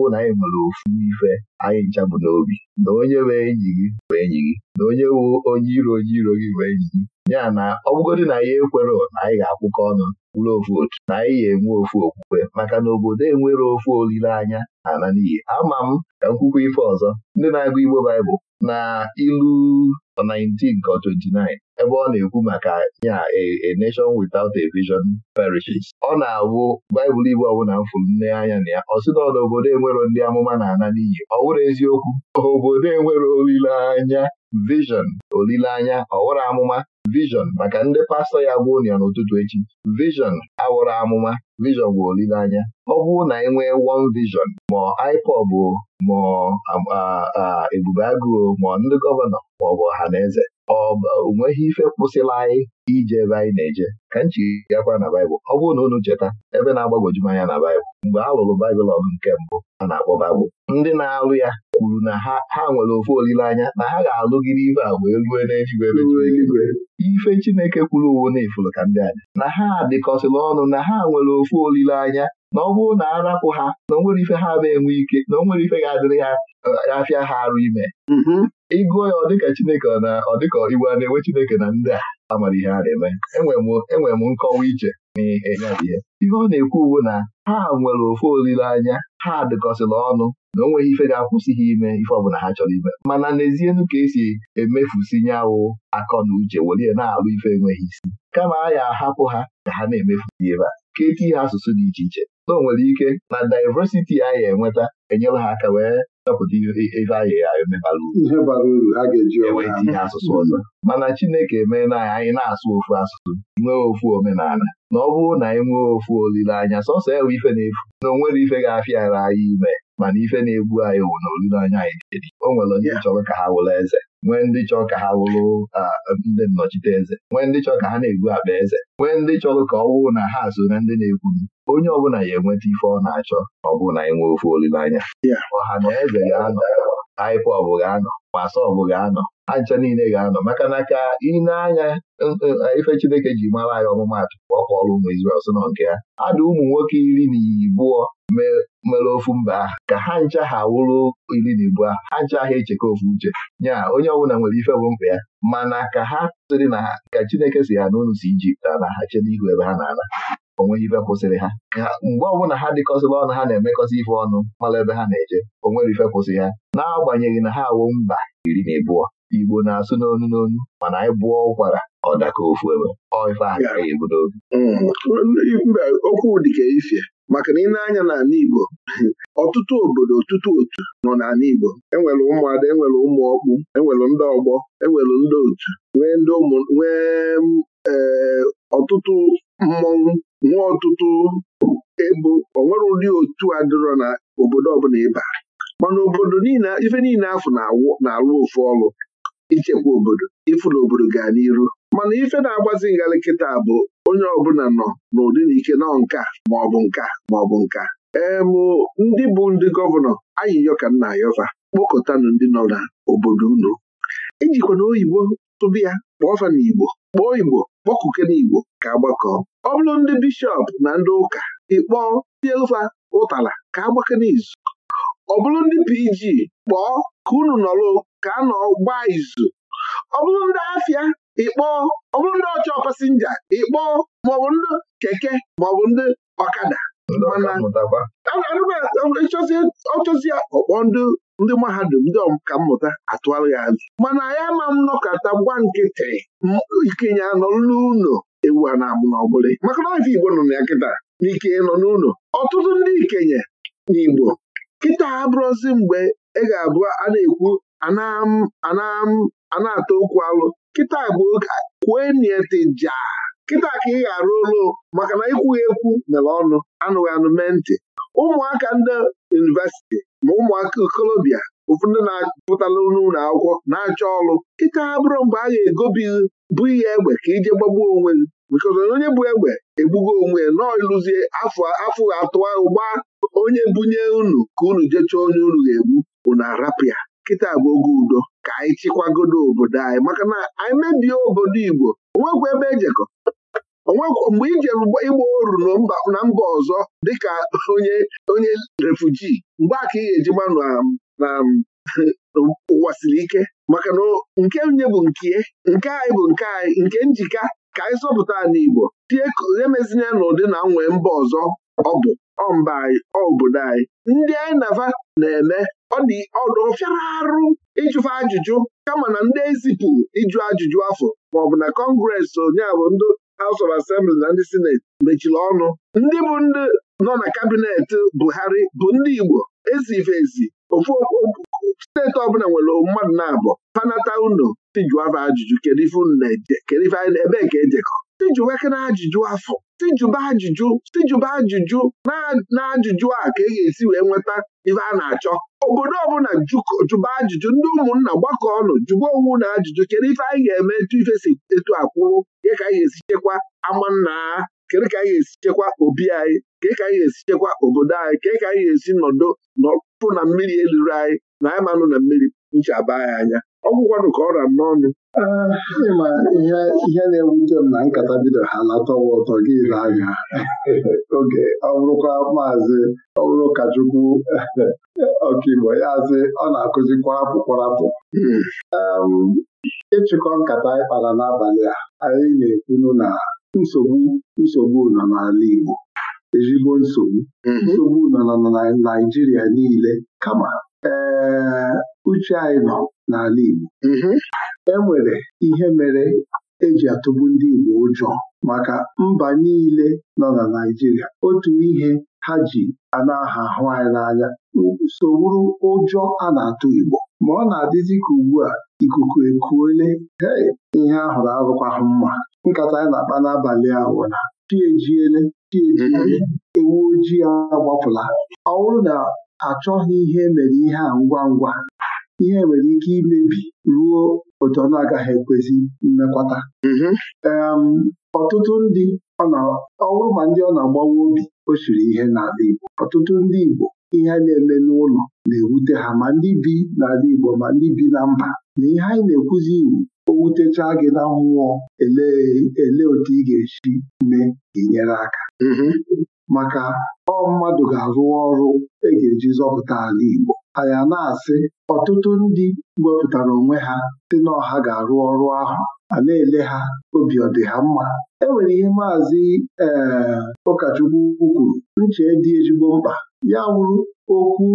ọ na anyị nwere ofu ife anyị nchabụ n'obi na onye bụ enyi gị bụ enyi gị na onye bụ onye iro onye iro gị bụ enyi gị ya na ọ na anyị ekwere na anyị ga-akwụkọ ọnụ bụrụ ofu otu na anyị ga-enwe ofu okwukwe maka na obodo enwere ofu olileanya na ala n'iyi ama m ka m kwukwa ife ọzọ ndị na-agụ Igbo Baịbụl na ilu 19 29 ebe ọ na-ekwu maka ya a nation without a vision perishes ọ na-awụ baịbụl igbo ọbụla mfụ nne anya na ya ọ na obodo enwero ndị amụma na-ana n'iyi ọ wụrụ eziokwu obodo enwere olileanya vision olileanya ọwụrụ amụma vision maka ndị pastọ ya bụ ụnịa n'ụtụtụ echi vision awụrụ amụma vision bụ olileanya ọ bụrụ na e nwee won vision ma IPOB ma ebube agụụ ma ndị gọvanọ ma ọ bụ ọha na eze ọ onweghị ife kwụsịla anyị ije ebe anyị na-eje ka m akwa na baịbụl ọ bụrụ na unu cheta ebe na-agbagwoju anya na baịbụl mgbe a lụrụ baịbụl ọgụ nke mbụ a na-akpọ baịbụl ndị na-alụ ya kwuru na ha ha nwere ofu olileanya na ha ga-alụgide ife a wee rue n'eluigwe e eluigwe ife Chineke kwuru uwo na ifuru ka ndị aja na ha dịkọsịla ọnụ na ha nwere ofu olileanya na ọ bụrụ na arapụ ha na onwere ife ha na-enwe ike na onwere ife ga-adịrị ha e, afịa ha arụ ime mm-hmm. ịgụọ ya ọ dịka Chineke na ọ dịka Igbo a na-enwe Chineke na ndị a amara ihe a na-eme enwere m nkọwa iche n'ihe ihe ọ na-ekwu uwe na ha nwere ofe olileanya ha dịkọsịrị ọnụ na o nweghị ife ga-akwụsị ha ime ife ọ bụla ha chọrọ ime mana nu ka esi emefusi awụ akọ na uche ya na-alụ ife enweghị isi kama a ya ahapụ ha ka ha na-emefusi ebe a ka etinye ha asụsụ dị iche iche na o nwere ike na diversity a ya enweta enyere ha aka wee chọpụta ebe a ya eme bara uru enwee tinye asụsụ ọzọ mana Chineke emeela anya anyị na-asụ ofu asụsụ nwee ofu omenala na ọ bụrụ na anyị nwee ofu olileanya sọsọ ewe ife na-efu na o nwere ife ga-afịara anyị ime mana ife na-egbu anyị wụ na olileanya anyị jiri o nwere ndị chọrọ ka ha wụrụ eze nwee ndị chọrọ ka ha wụrụ ndị nnọchite eze nwee ndị chọrọ ka ha na-egbu akpa eze nwee ndị chọrọ ka ọ wụrụ na ha so na ndị na-ekwu onye ọbụla ya enweta ife ọ na-achọ ọ bụ na anyị nwee ofe olileanya. ọha na eze ga-anọ aịpa ọbụ ga-anọ ma asa ga-anọ ancha niile ga-anọ maka na ka ị anya e, e, e, ife Chineke ji mara anyị ọmụmatụ ka ọ kpọrọ ụmụ Izrel sị nọ nke ya adụ ụmụ nwoke iri na ibụọ mere ofu mba ka ha ncha ha wụrụ iri na ibụọ ha ncha ha echeka ofu uche nya onye ọbụla nwere ife bụ mkpa ya mana ka ha sịrị na ka Chineke si ha n'ụlọ si Ijipt na ha chede ihu ebe ha na-ana onweghị ife kwụsịrị ha mgbe ọbụla ha dịkọsịla ọnụ ha na-emekọsị ife ọnụ mara ebe ha na-eje onwere ife kwụsị ha na-agbanyeghị na ha awụ mba iri na abụọ Igbo na-asụ n'onu n'onu mana anyị bụọ ụkwara ọ daka ofu ebe ife agara ebu n'obi mba okwu dịka ifie maka na ị na-anya n'ala Igbo ọtụtụ obodo ọtụtụ otu nọ n'ala Igbo enwere ụmụada enwere ụmụ ọkpụ enwere ndị ọgbọ enwere ndị otu nwee ndị ụmụ nwee ee eh, ọtụtụ mmọnwụ nwee ọtụtụ ebu onwere ụdị otu a dịrọ na obodo ọbụla ịba mana obodo niile ife niile afọ na-alụ ofu ọrụ ichekwa obodo ifuru obodo gaa n'iru mana ife na-agbazi ngalị kịta bụ onye ọbụla nọ n'ụdị na ike nọ nka maọbụ nka maọbụ nka em ndị bụ ndị gọvanọ ayịyọ ka nna ayọfa ndị nọ n'obodo unu ejikwana oyibo tụba ya fa na igbo kpọọ igbo kpọkụke na igbo ka agbakọ ọ bụrụ ndị bishọp na ndị ụka ịkpọọ tiefa ụtala ka agbake n'izu ọ bụrụ ndị PG kpọọ ka unu nọrọ ka a nọ gbaa izu ọ bụrụ ndị afịa ịkpọọ ọ bụrụ ndị ọchọ pasinja ịkpọọ maọbụ ndị keke maọbụ ndị ọkada ọchọzi ọkpọ ndị mahadum ndị ka mmụta atụgharị ya azụ mana ya ma m nọkọta gwa nkịtị ikenye anọrụ n'ụlọ ewu a na-amụ n'ọbụla maka na ife Igbo nọ na ya kịta n'ike ịnọ n'ụlọ ọtụtụ ndị ikenye n'Igbo kịta abụrụzi mgbe ị ga-abụ a na-ekwu ana ata okwu alụ kịta bụ kwue nietija kịta ka ị ga-arụ ụlọ maka na ikwughị ekwu mere ọnụ anụghị anụ mee ntị ụmụaka ndị yunivesiti ma ụmụaka okolobịa ụfọdụ ndị na-apụtalụ n'ụlọ akwụkwọ na-achọ ọrụ kịta abụrụ mgbe a ga-egobi bụ ihe egbe ka ije gbagbuo onwe gị nke onye bụ egbe egbugo onwe ya nọọ ịlụzie afọ afọ atụwa ụgba onye bunye unu ka unu jechaa onye unu ga-egbu unu arapịa kịta bụ oge udo ka anyị chịkwagodo obodo anyị maka na anyị mebie obodo Igbo onwekwa ebe ejekọ mgbe ije ịgba oru na mba ọzọ dịka onye onye refuji mgbe a ka ị ga-eji gbanụ na ụwa siri ike maka na nke nye bụ nke nke anyị bụ nke anyị nke njika ka anyị zọpụta n'Igbo tie emezina n'ụdị na nwee mba ọzọ ọ bụ ọmba anyị obodo anyị ndị anyị nava na-eme ọ dị ọdụ fịara arụ ịjụfa ajụjụ kama na ndị ezipụ ịjụ ajụjụ afọ maọbụ na kọngres onyeabụ ndị House of Assembly na ndị Senate mechiri ọnụ ndị bụ ndị nọ na kabinet Buhari bụ ndị Igbo ezivezi ezi ofu steeti ọbụla nwere mmadụ na-abụ panata uno si ajụjụ kedu ife unu na-eje kedu ife anyị na-ebe ka ejekọ tijuwekena ajụjụ afọ tijuba ajụjụ tijuba ajụjụ na ajụjụ a ka e ga-esi wee nweta ife a na-achọ obodo ọbụla jụba ajụjụ ndị ụmụnna gbakọ ọnụ jụba onwe na ajụjụ kedu ife anyị ga-eme etu ife si etu akwụrụ ka anyị ga-esi chekwa amanna kedu ka anyị ga-esi chekwa obi anyị kedu ka anyị ga-esi chekwa obodo anyị kedu ka anyị ga-esi nọdụ nọpụ na mmiri eluru anyị na anyị manụ na mmiri nchaba anyị anya ọgwụkwanụ ka ọ ra n'ọnụ ịma ihe na-ewute m na nkata bido ha latọwa ụtọ gị ile anya oge ọ bụrụkwa maazị ọ bụrụ ụkọchukwu ọkaigbo ya azị ọ na-akụzikwa apụkwarapụ ịchịkọ nkata ịkpara n'abalị a anyị na-ekwunu na nsogbu nsogbu nọ n'ala Igbo ezigbo nsogbu nsogbu nọ na Naịjirịa niile kama ee uche anyị nọ n'ala Igbo e nwere ihe mere eji atụgbu ndị Igbo ụjọ maka mba niile nọ na Naịjirịa otu ihe ha ji ana na-aha ahụ anyị n'anya so wuru ụjọ a na-atụ Igbo ma ọ na-adịzi ka ugbu a ikuku ekuole hei ihe ahụrụ arụkwahụ mma nkata anyị na-akpa n'abalị ahụ na ojii agbapụla ọ bụrụ na achọghị ihe e mere ihe a ngwa ngwa ihe nwere ike imebi ruo otu ọ na-agaghị ekwezi mmekwata mhm. ọtụtụ ndị ọ bụrụ ma ndị ọ na-agbawa obi o siri ihe n'ala Igbo ọtụtụ ndị Igbo ihe a na-eme n'ụlọ na-ewute ha ma ndị bi n'ala Igbo ma ndị bi na mba na ihe anyị na-ekwuzi iwu o wutechaa gị na mmụọ ele otu ị ga-esi mee ka inyere aka mhm. maka ọ mmadụ ga-arụ ọrụ e ga-eji zọpụta ala Igbo anyị na-asị ọtụtụ ndị wepụtara onwe ha si na ga-arụ ọrụ ahụ a na-ele ha obi ọ ha mma e nwere ihe maazị ee eh, ụkọchukwu kwuru nche dị ezigbo mkpa ya wụrụ okwu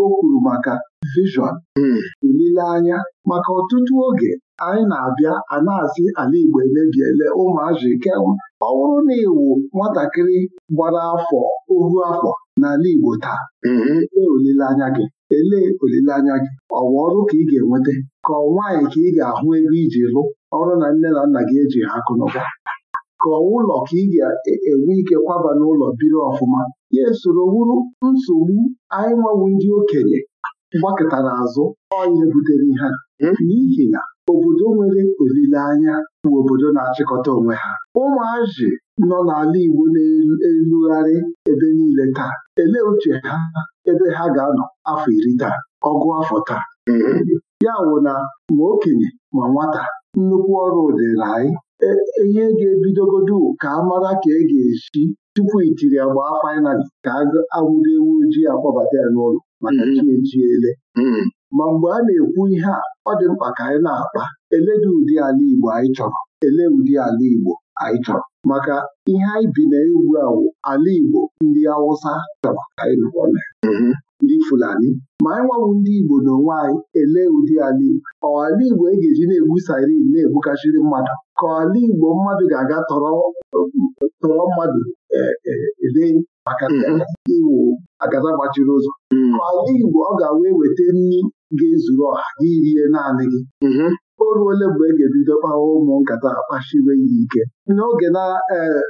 o kwuru maka vishọn hmm. olileanya maka ọtụtụ oge anyị na-abịa a na-asị ala Igbo emebiele ụmụazị ike ọ bụrụ na nwatakịrị gbara afọ ohu afọ n'ala Igbo taa mm-hmm. elee olileanya gị elee olileanya gị ọwa ọrụ ka ị ga-enweta ka ọ nwaanyị ka ị ga-ahụ ego iji lụ ọrụ na nne na nna gị eji ha akụ na ụba ka ụlọ ka ị ga-enwe ike kwaba n'ụlọ biri ọfụma ya esoro wuru nsogbu anyị nwewu ndị okenye gbakịtara azụ ọnya butere ihe hmm? n'ihi ya. obodo nwere olileanya bụ obodo na-achịkọta onwe ha ụmụazị nọ n'ala Igbo na-elugharị ebe niile taa elee uche ha ebe ha ga-anọ afọ iri taa ọgụ afọ taa ya wụ na ma okenye ma nwata nnukwu ọrụ dịrị anyị e, ihe ga-ebidogodu ka a mara ka e ga-esi tupu itiri agba fainali ka agụdo ewu ojii akpọbata ya n'ụlọ maka mm-hmm. chi ele. Mm-hmm. ma mgbe a na-ekwu ihe a ọ dị mkpa ka anyị na-akpa Eledị ụdị ala Igbo anyị chọrọ ele ụdị ala Igbo anyị chọrọ maka ihe anyị bi na ewu awụ, ala Igbo ndị Awụsa chọrọ ka anyị nọrọ na mm-hmm. ndị Fulani ma anyị nwawu ndị Igbo n'onwe anyị ele ụdị ala Igbo ọ ala Igbo e ga-eji na-egbu sarin na-egbukachiri mmadụ ka ala Igbo mmadụ ga-aga tọrọ mmadụ e, e, ele maka mm-hmm. iwu agada gbachiri ụzọ mm-hmm. ka ala Igbo ọ ga-wee weta nri ga-ezuru ọha gị rie naanị gị mhm. o ole mgbe e ga-ebido kpawa ụmụ nkata akpashiwe ya ike n'oge na eh,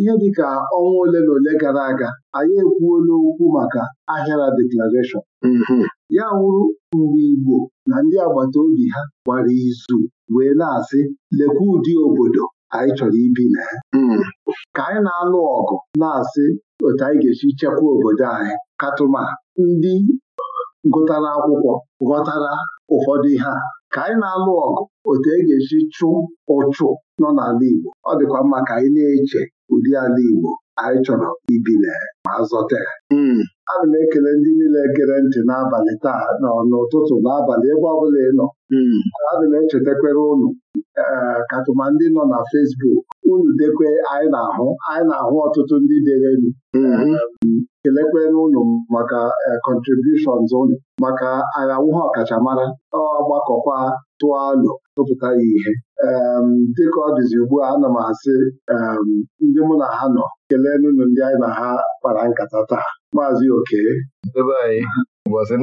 ihe dịka ọnwa ole na ole gara aga anyị ekwuola okwu maka ahịara deklarashọn mhm. ya wụrụ mgbe Igbo na ndị agbata obi ha gwara izu wee na-asị lekwa ụdị obodo anyị chọrọ ibi na ya mhm. ka anyị na-alụ ọgụ na-asị otu anyị ga-esi chekwa obodo anyị katụma ndị gụtara akwụkwọ ghọtara ụfọdụ ihe a ka anyị na-alụ ọgụ otu e ga-esi chụ ụchụ nọ n'ala Igbo ọ dịkwa mma ka anyị na-eche ụdị ala Igbo anyị chọrọ ibile ma azọta ya hmm. ana m ekele ndị niile gere ntị n'abalị taa nọ n'ụtụtụ n'abalị ebe ọbụla ị nọ hmm. ana m echetakwere ụnụ. Eh, katụma ndị nọ na Fesbuk unu dekwe anyị na-ahụ anyị na-ahụ ọtụtụ ndị derenu hmm. eh, kelekwere m maka eh, contributions ụnụ maka agha nwụha ọkachamara ọgbakọkwa tụọ alo tụpụta ya ihe dịka ọ dịzi ugbu a ana m asị ndị mụ na ha nọ kelee n'ụlọ ndị anyị na ha kpara nkata taa maazị oke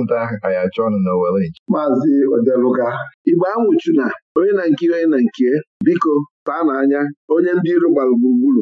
nta anyị achọ ọnụ maazị odeluga igbe anwụchuna onye na nke onye na nke biko taa n'anya onye ndị iru gbara gburugburu